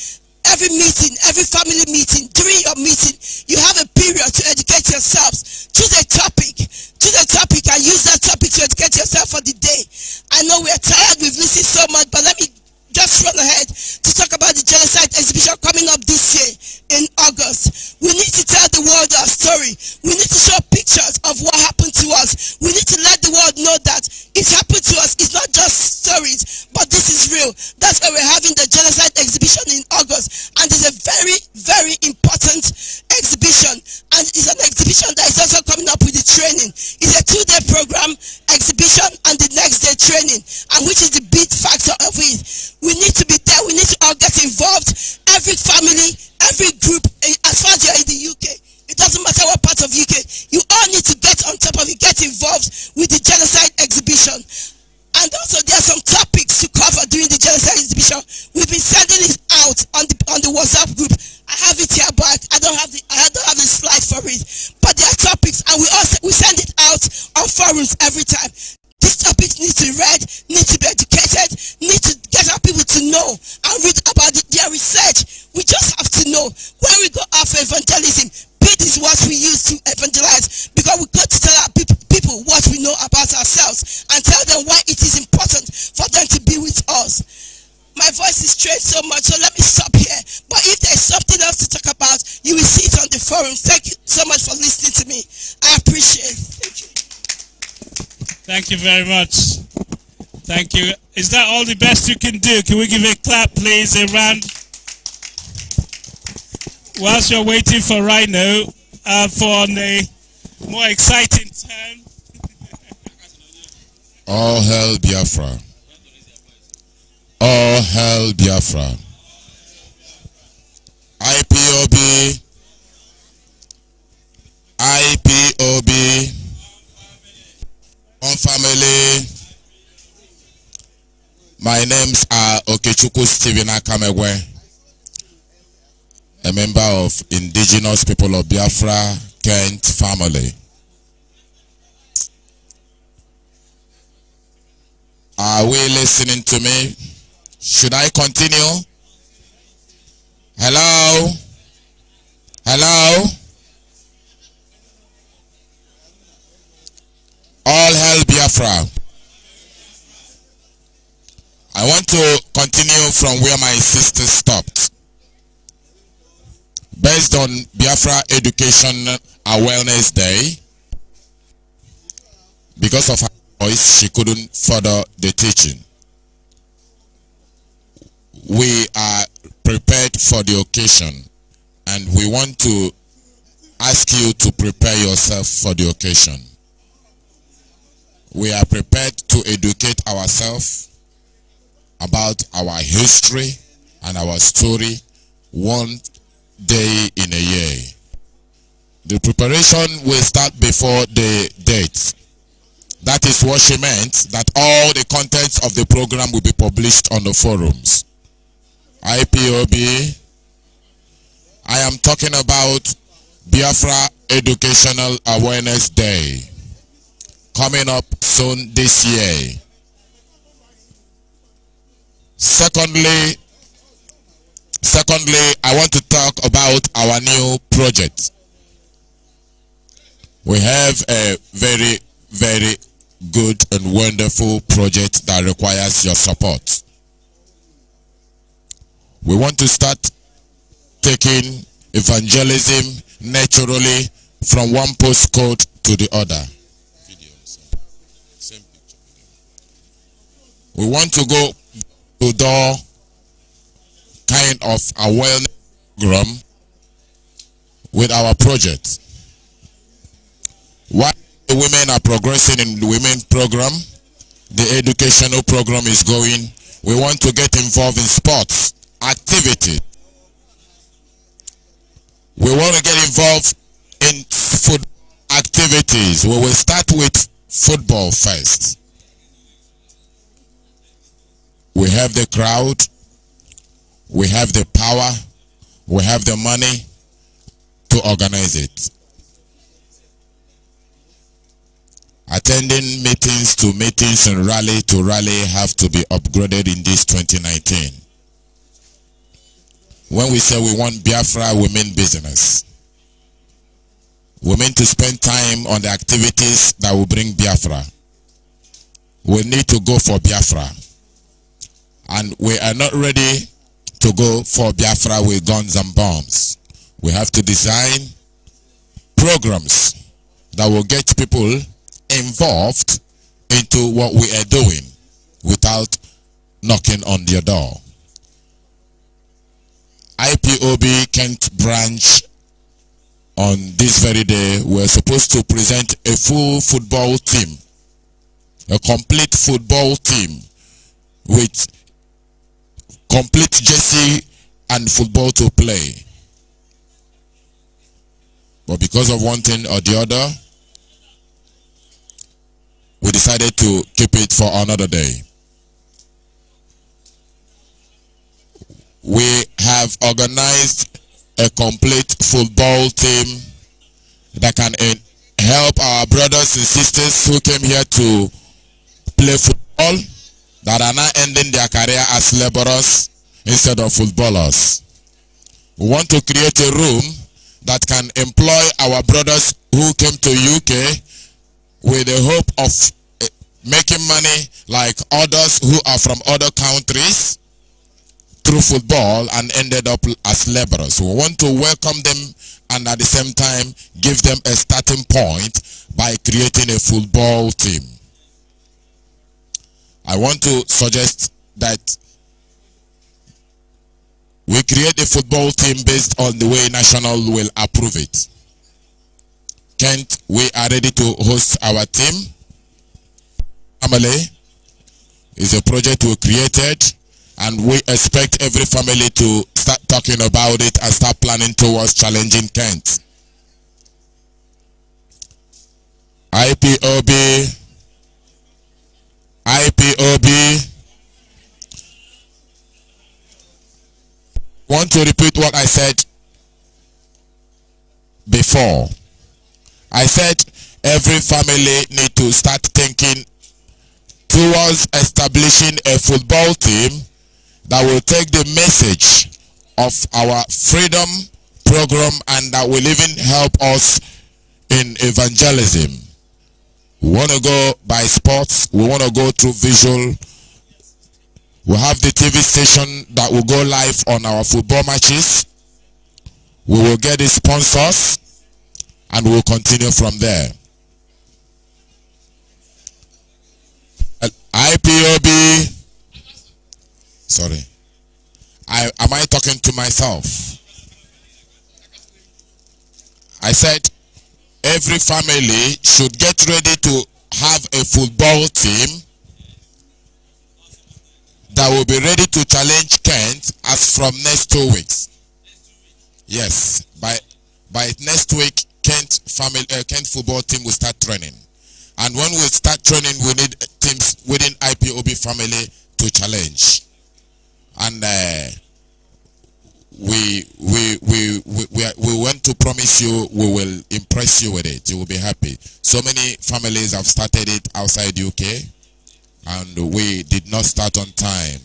every meeting, every family meeting, during your meeting, you have a period to educate yourselves Choose a topic. Choose a topic and use that topic to educate yourself for the day. I know we are tired, we've missing so much, but let me just run ahead to talk about the genocide exhibition coming up this year in August. We need to tell the world our story. We need to show pictures of what happened to us. We need to let the world know that it happened to us. It's not just stories, but this is real. That's why we're having the genocide exhibition in August. And it's a very, very important exhibition. And it's an exhibition that is also coming up with the training. It's a two-day program, exhibition, and the next day training, and which is the big factor of it. We need to be there. We need to all get involved every family, every group, eh, as far as you're in the UK, it doesn't matter what part of UK, you all need to get on top of it, get involved with the genocide exhibition. And also there are some topics to cover during the genocide exhibition. We've been sending it out on the on the WhatsApp group. I have it here, but I don't have the I don't have the slide for it. But there are topics and we also we send it out on forums every time. These topics need to be read, need to be educated, need to get our people to know and about the, their research. We just have to know when we go after evangelism, Be these words we use to evangelize because we got to tell our people, people what we know about ourselves and tell them why it is important for them to be with us. My voice is strained so much, so let me stop here. But if there's something else to talk about, you will see it on the forum. Thank you so much for listening to me. I appreciate it. Thank you. Thank you very much. Thank you. Is that all the best you can do? Can we give a clap, please, a round? Whilst you're waiting for Rhino uh, for a more exciting turn, [LAUGHS] all hail Biafra. All hail Biafra. IPOB. IPOB. On family. My names are Okechuku Steven Akamegwe, a member of Indigenous People of Biafra Kent family. Are we listening to me? Should I continue? Hello? Hello? All hell Biafra. I want to continue from where my sister stopped. Based on Biafra Education Awareness Day, because of her voice, she couldn't further the teaching. We are prepared for the occasion and we want to ask you to prepare yourself for the occasion. We are prepared to educate ourselves about our history and our story one day in a year. The preparation will start before the date. That is what she meant, that all the contents of the program will be published on the forums. IPOB, I am talking about Biafra Educational Awareness Day, coming up soon this year. Secondly, secondly, I want to talk about our new project. We have a very, very good and wonderful project that requires your support. We want to start taking evangelism naturally from one postcode to the other. We want to go to door kind of awareness program with our project. While the women are progressing in the women program, the educational program is going, we want to get involved in sports, activity. We want to get involved in food activities. We will start with football first. We have the crowd. We have the power. We have the money to organize it. Attending meetings to meetings and rally to rally have to be upgraded in this 2019. When we say we want Biafra, we mean business. We mean to spend time on the activities that will bring Biafra. We need to go for Biafra and we are not ready to go for Biafra with guns and bombs. We have to design programs that will get people involved into what we are doing without knocking on their door. IPOB Kent branch on this very day we are supposed to present a full football team, a complete football team with complete jersey, and football to play. But because of one thing or the other, we decided to keep it for another day. We have organized a complete football team that can eh, help our brothers and sisters who came here to play football that are now ending their career as laborers instead of footballers. We want to create a room that can employ our brothers who came to UK with the hope of eh, making money like others who are from other countries through football and ended up as laborers. We want to welcome them and at the same time give them a starting point by creating a football team. I want to suggest that we create a football team based on the way National will approve it. Kent, we are ready to host our team. Family is a project we created and we expect every family to start talking about it and start planning towards challenging Kent. IPOB IPOB. Want to repeat what I said before. I said every family need to start thinking towards establishing a football team that will take the message of our freedom program and that will even help us in evangelism. We want to go by sports. We want to go through visual. We have the TV station that will go live on our football matches. We will get the sponsors and we'll continue from there. Uh, IPOB. Sorry. I, am I talking to myself? I said every family should get ready to have a football team that will be ready to challenge Kent as from next two weeks. Yes, by by next week, Kent family uh, Kent football team will start training, and when we start training, we need teams within IPOB family to challenge, and uh, we promise you we will impress you with it. You will be happy. So many families have started it outside UK and we did not start on time.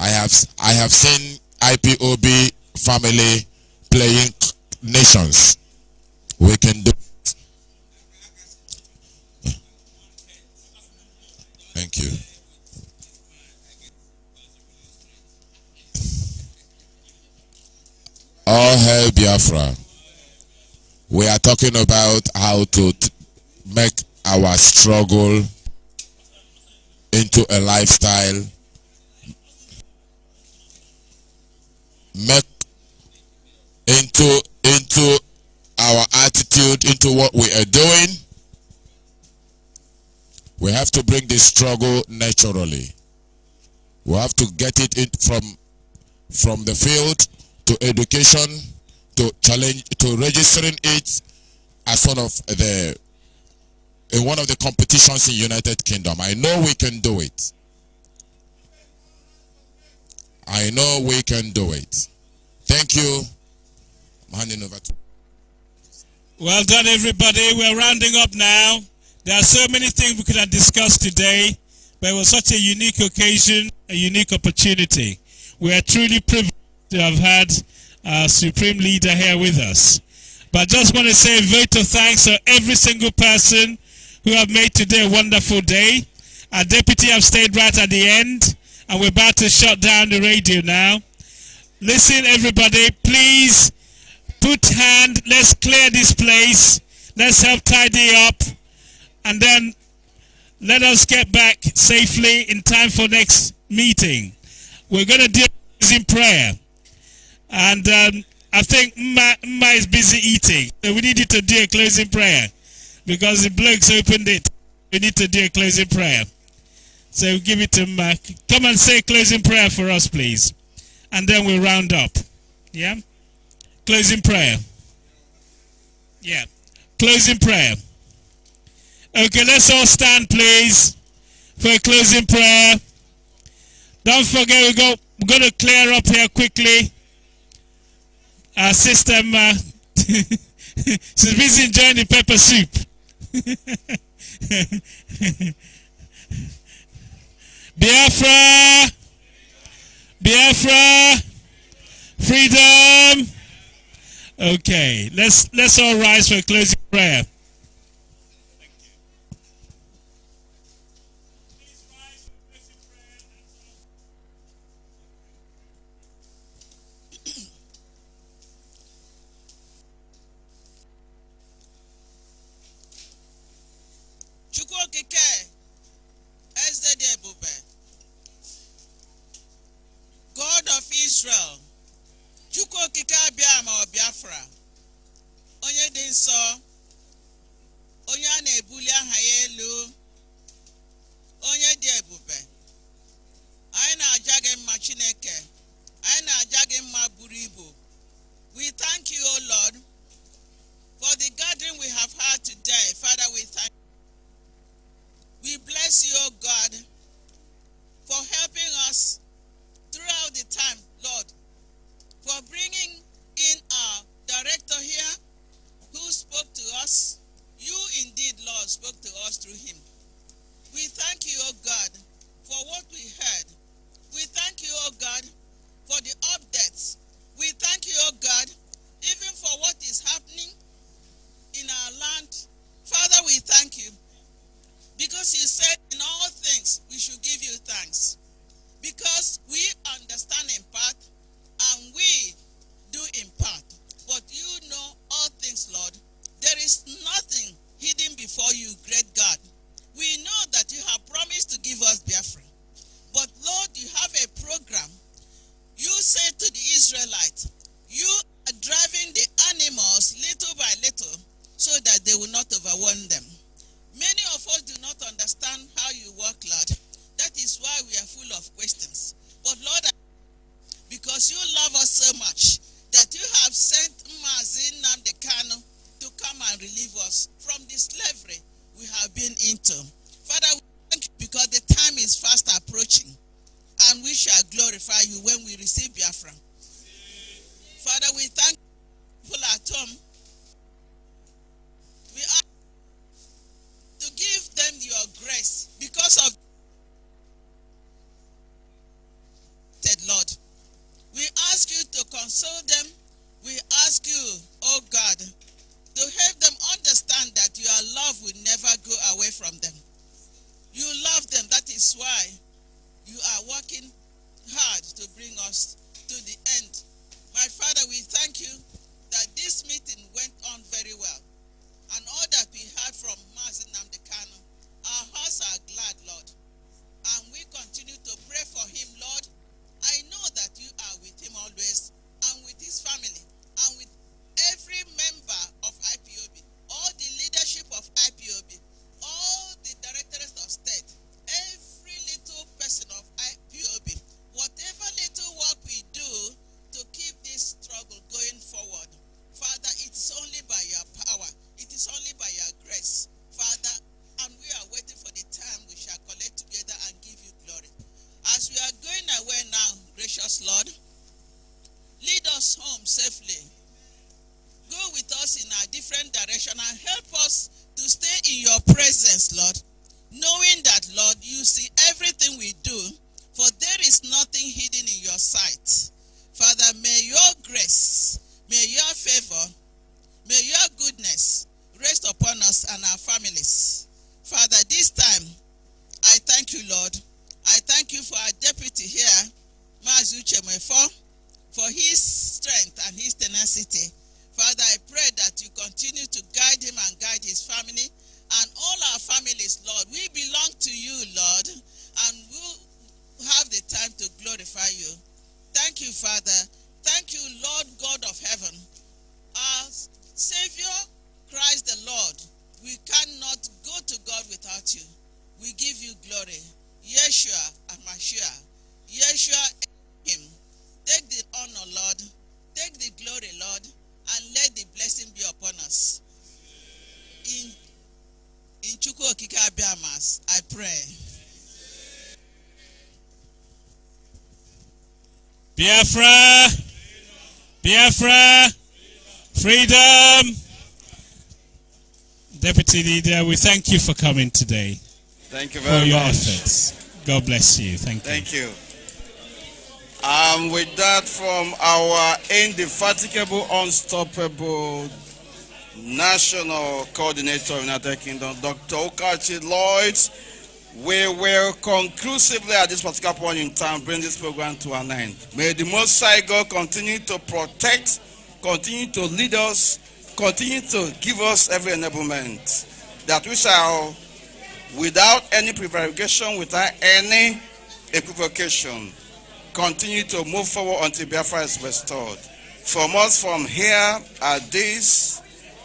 I have I have seen IPOB family playing nations. We can do it. Thank you. All hail Biafra. We are talking about how to make our struggle into a lifestyle. Make into into our attitude into what we are doing. We have to bring this struggle naturally. We have to get it in from from the field to education, to challenge, to registering it as one of the in one of the competitions in United Kingdom. I know we can do it. I know we can do it. Thank you. I'm handing over to. Well done, everybody. We're rounding up now. There are so many things we could have discussed today, but it was such a unique occasion, a unique opportunity. We are truly privileged to have had our supreme leader here with us. But I just want to say a vote of thanks to every single person who have made today a wonderful day. Our deputy have stayed right at the end, and we're about to shut down the radio now. Listen, everybody, please put hand, let's clear this place, let's help tidy up, and then let us get back safely in time for next meeting. We're going to do this in prayer. And um, I think Ma, Ma is busy eating. So we you to do a closing prayer because the blokes opened it. We need to do a closing prayer. So we'll give it to Ma. Come and say closing prayer for us, please. And then we'll round up. Yeah? Closing prayer. Yeah. Closing prayer. Okay, let's all stand, please, for a closing prayer. Don't forget, we go, we're going to clear up here quickly our sister Ma. Uh, [LAUGHS] she's busy enjoying the pepper soup. [LAUGHS] Biafra, Biafra, freedom. Okay, let's let's all rise for a closing prayer. Chike ebube God of Israel, Chukwu okike abịa ma ọ Biafra, onye dị nsọ, onye a na-ebuli aha ya elu, onye dị ebube, anyị na-aja gị mma Chineke, anyị na-aja gị mma buru ibu. We thank you, O Lord, for the gathering we have had today. Father, we thank you. We bless you, O God, for helping us throughout the time, Lord, for bringing in our director here who spoke to us. You indeed, Lord, spoke to us through him. We thank you, O God, for what we heard. We thank you, O God, for the updates. We thank you, O God, even for what is happening in our land. Father, we thank you because he said, In all things, we should give you thanks. Because we understand in part and we do in part. But you know all things, Lord. There is nothing hidden before you, great God. We know that you have promised to give us Biafra. But Lord, you have a program. You said to the Israelites, You are driving Biafra, Biafra, freedom. Deputy Leader, we thank you for coming today. Thank you very for your much. efforts. God bless you. Thank you. Thank you. And um, with that, from our indefatigable, unstoppable National Coordinator of United Kingdom, Dr. Okachi Lloyd, we will conclusively at this particular point in time bring this program to an end. May the Most High God continue to protect, continue to lead us, continue to give us every enablement that we shall, without any prevarication, without any equivocation, continue to move forward until Biafra is restored. From us from here at this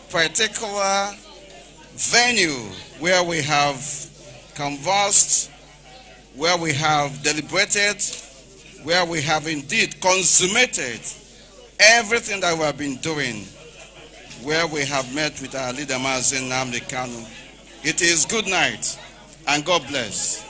particular venue where we have conversed, where we have deliberated, where we have indeed consummated everything that we have been doing, where we have met with our leader, Mazin Namdekanu. Kanu. It is good night and God bless.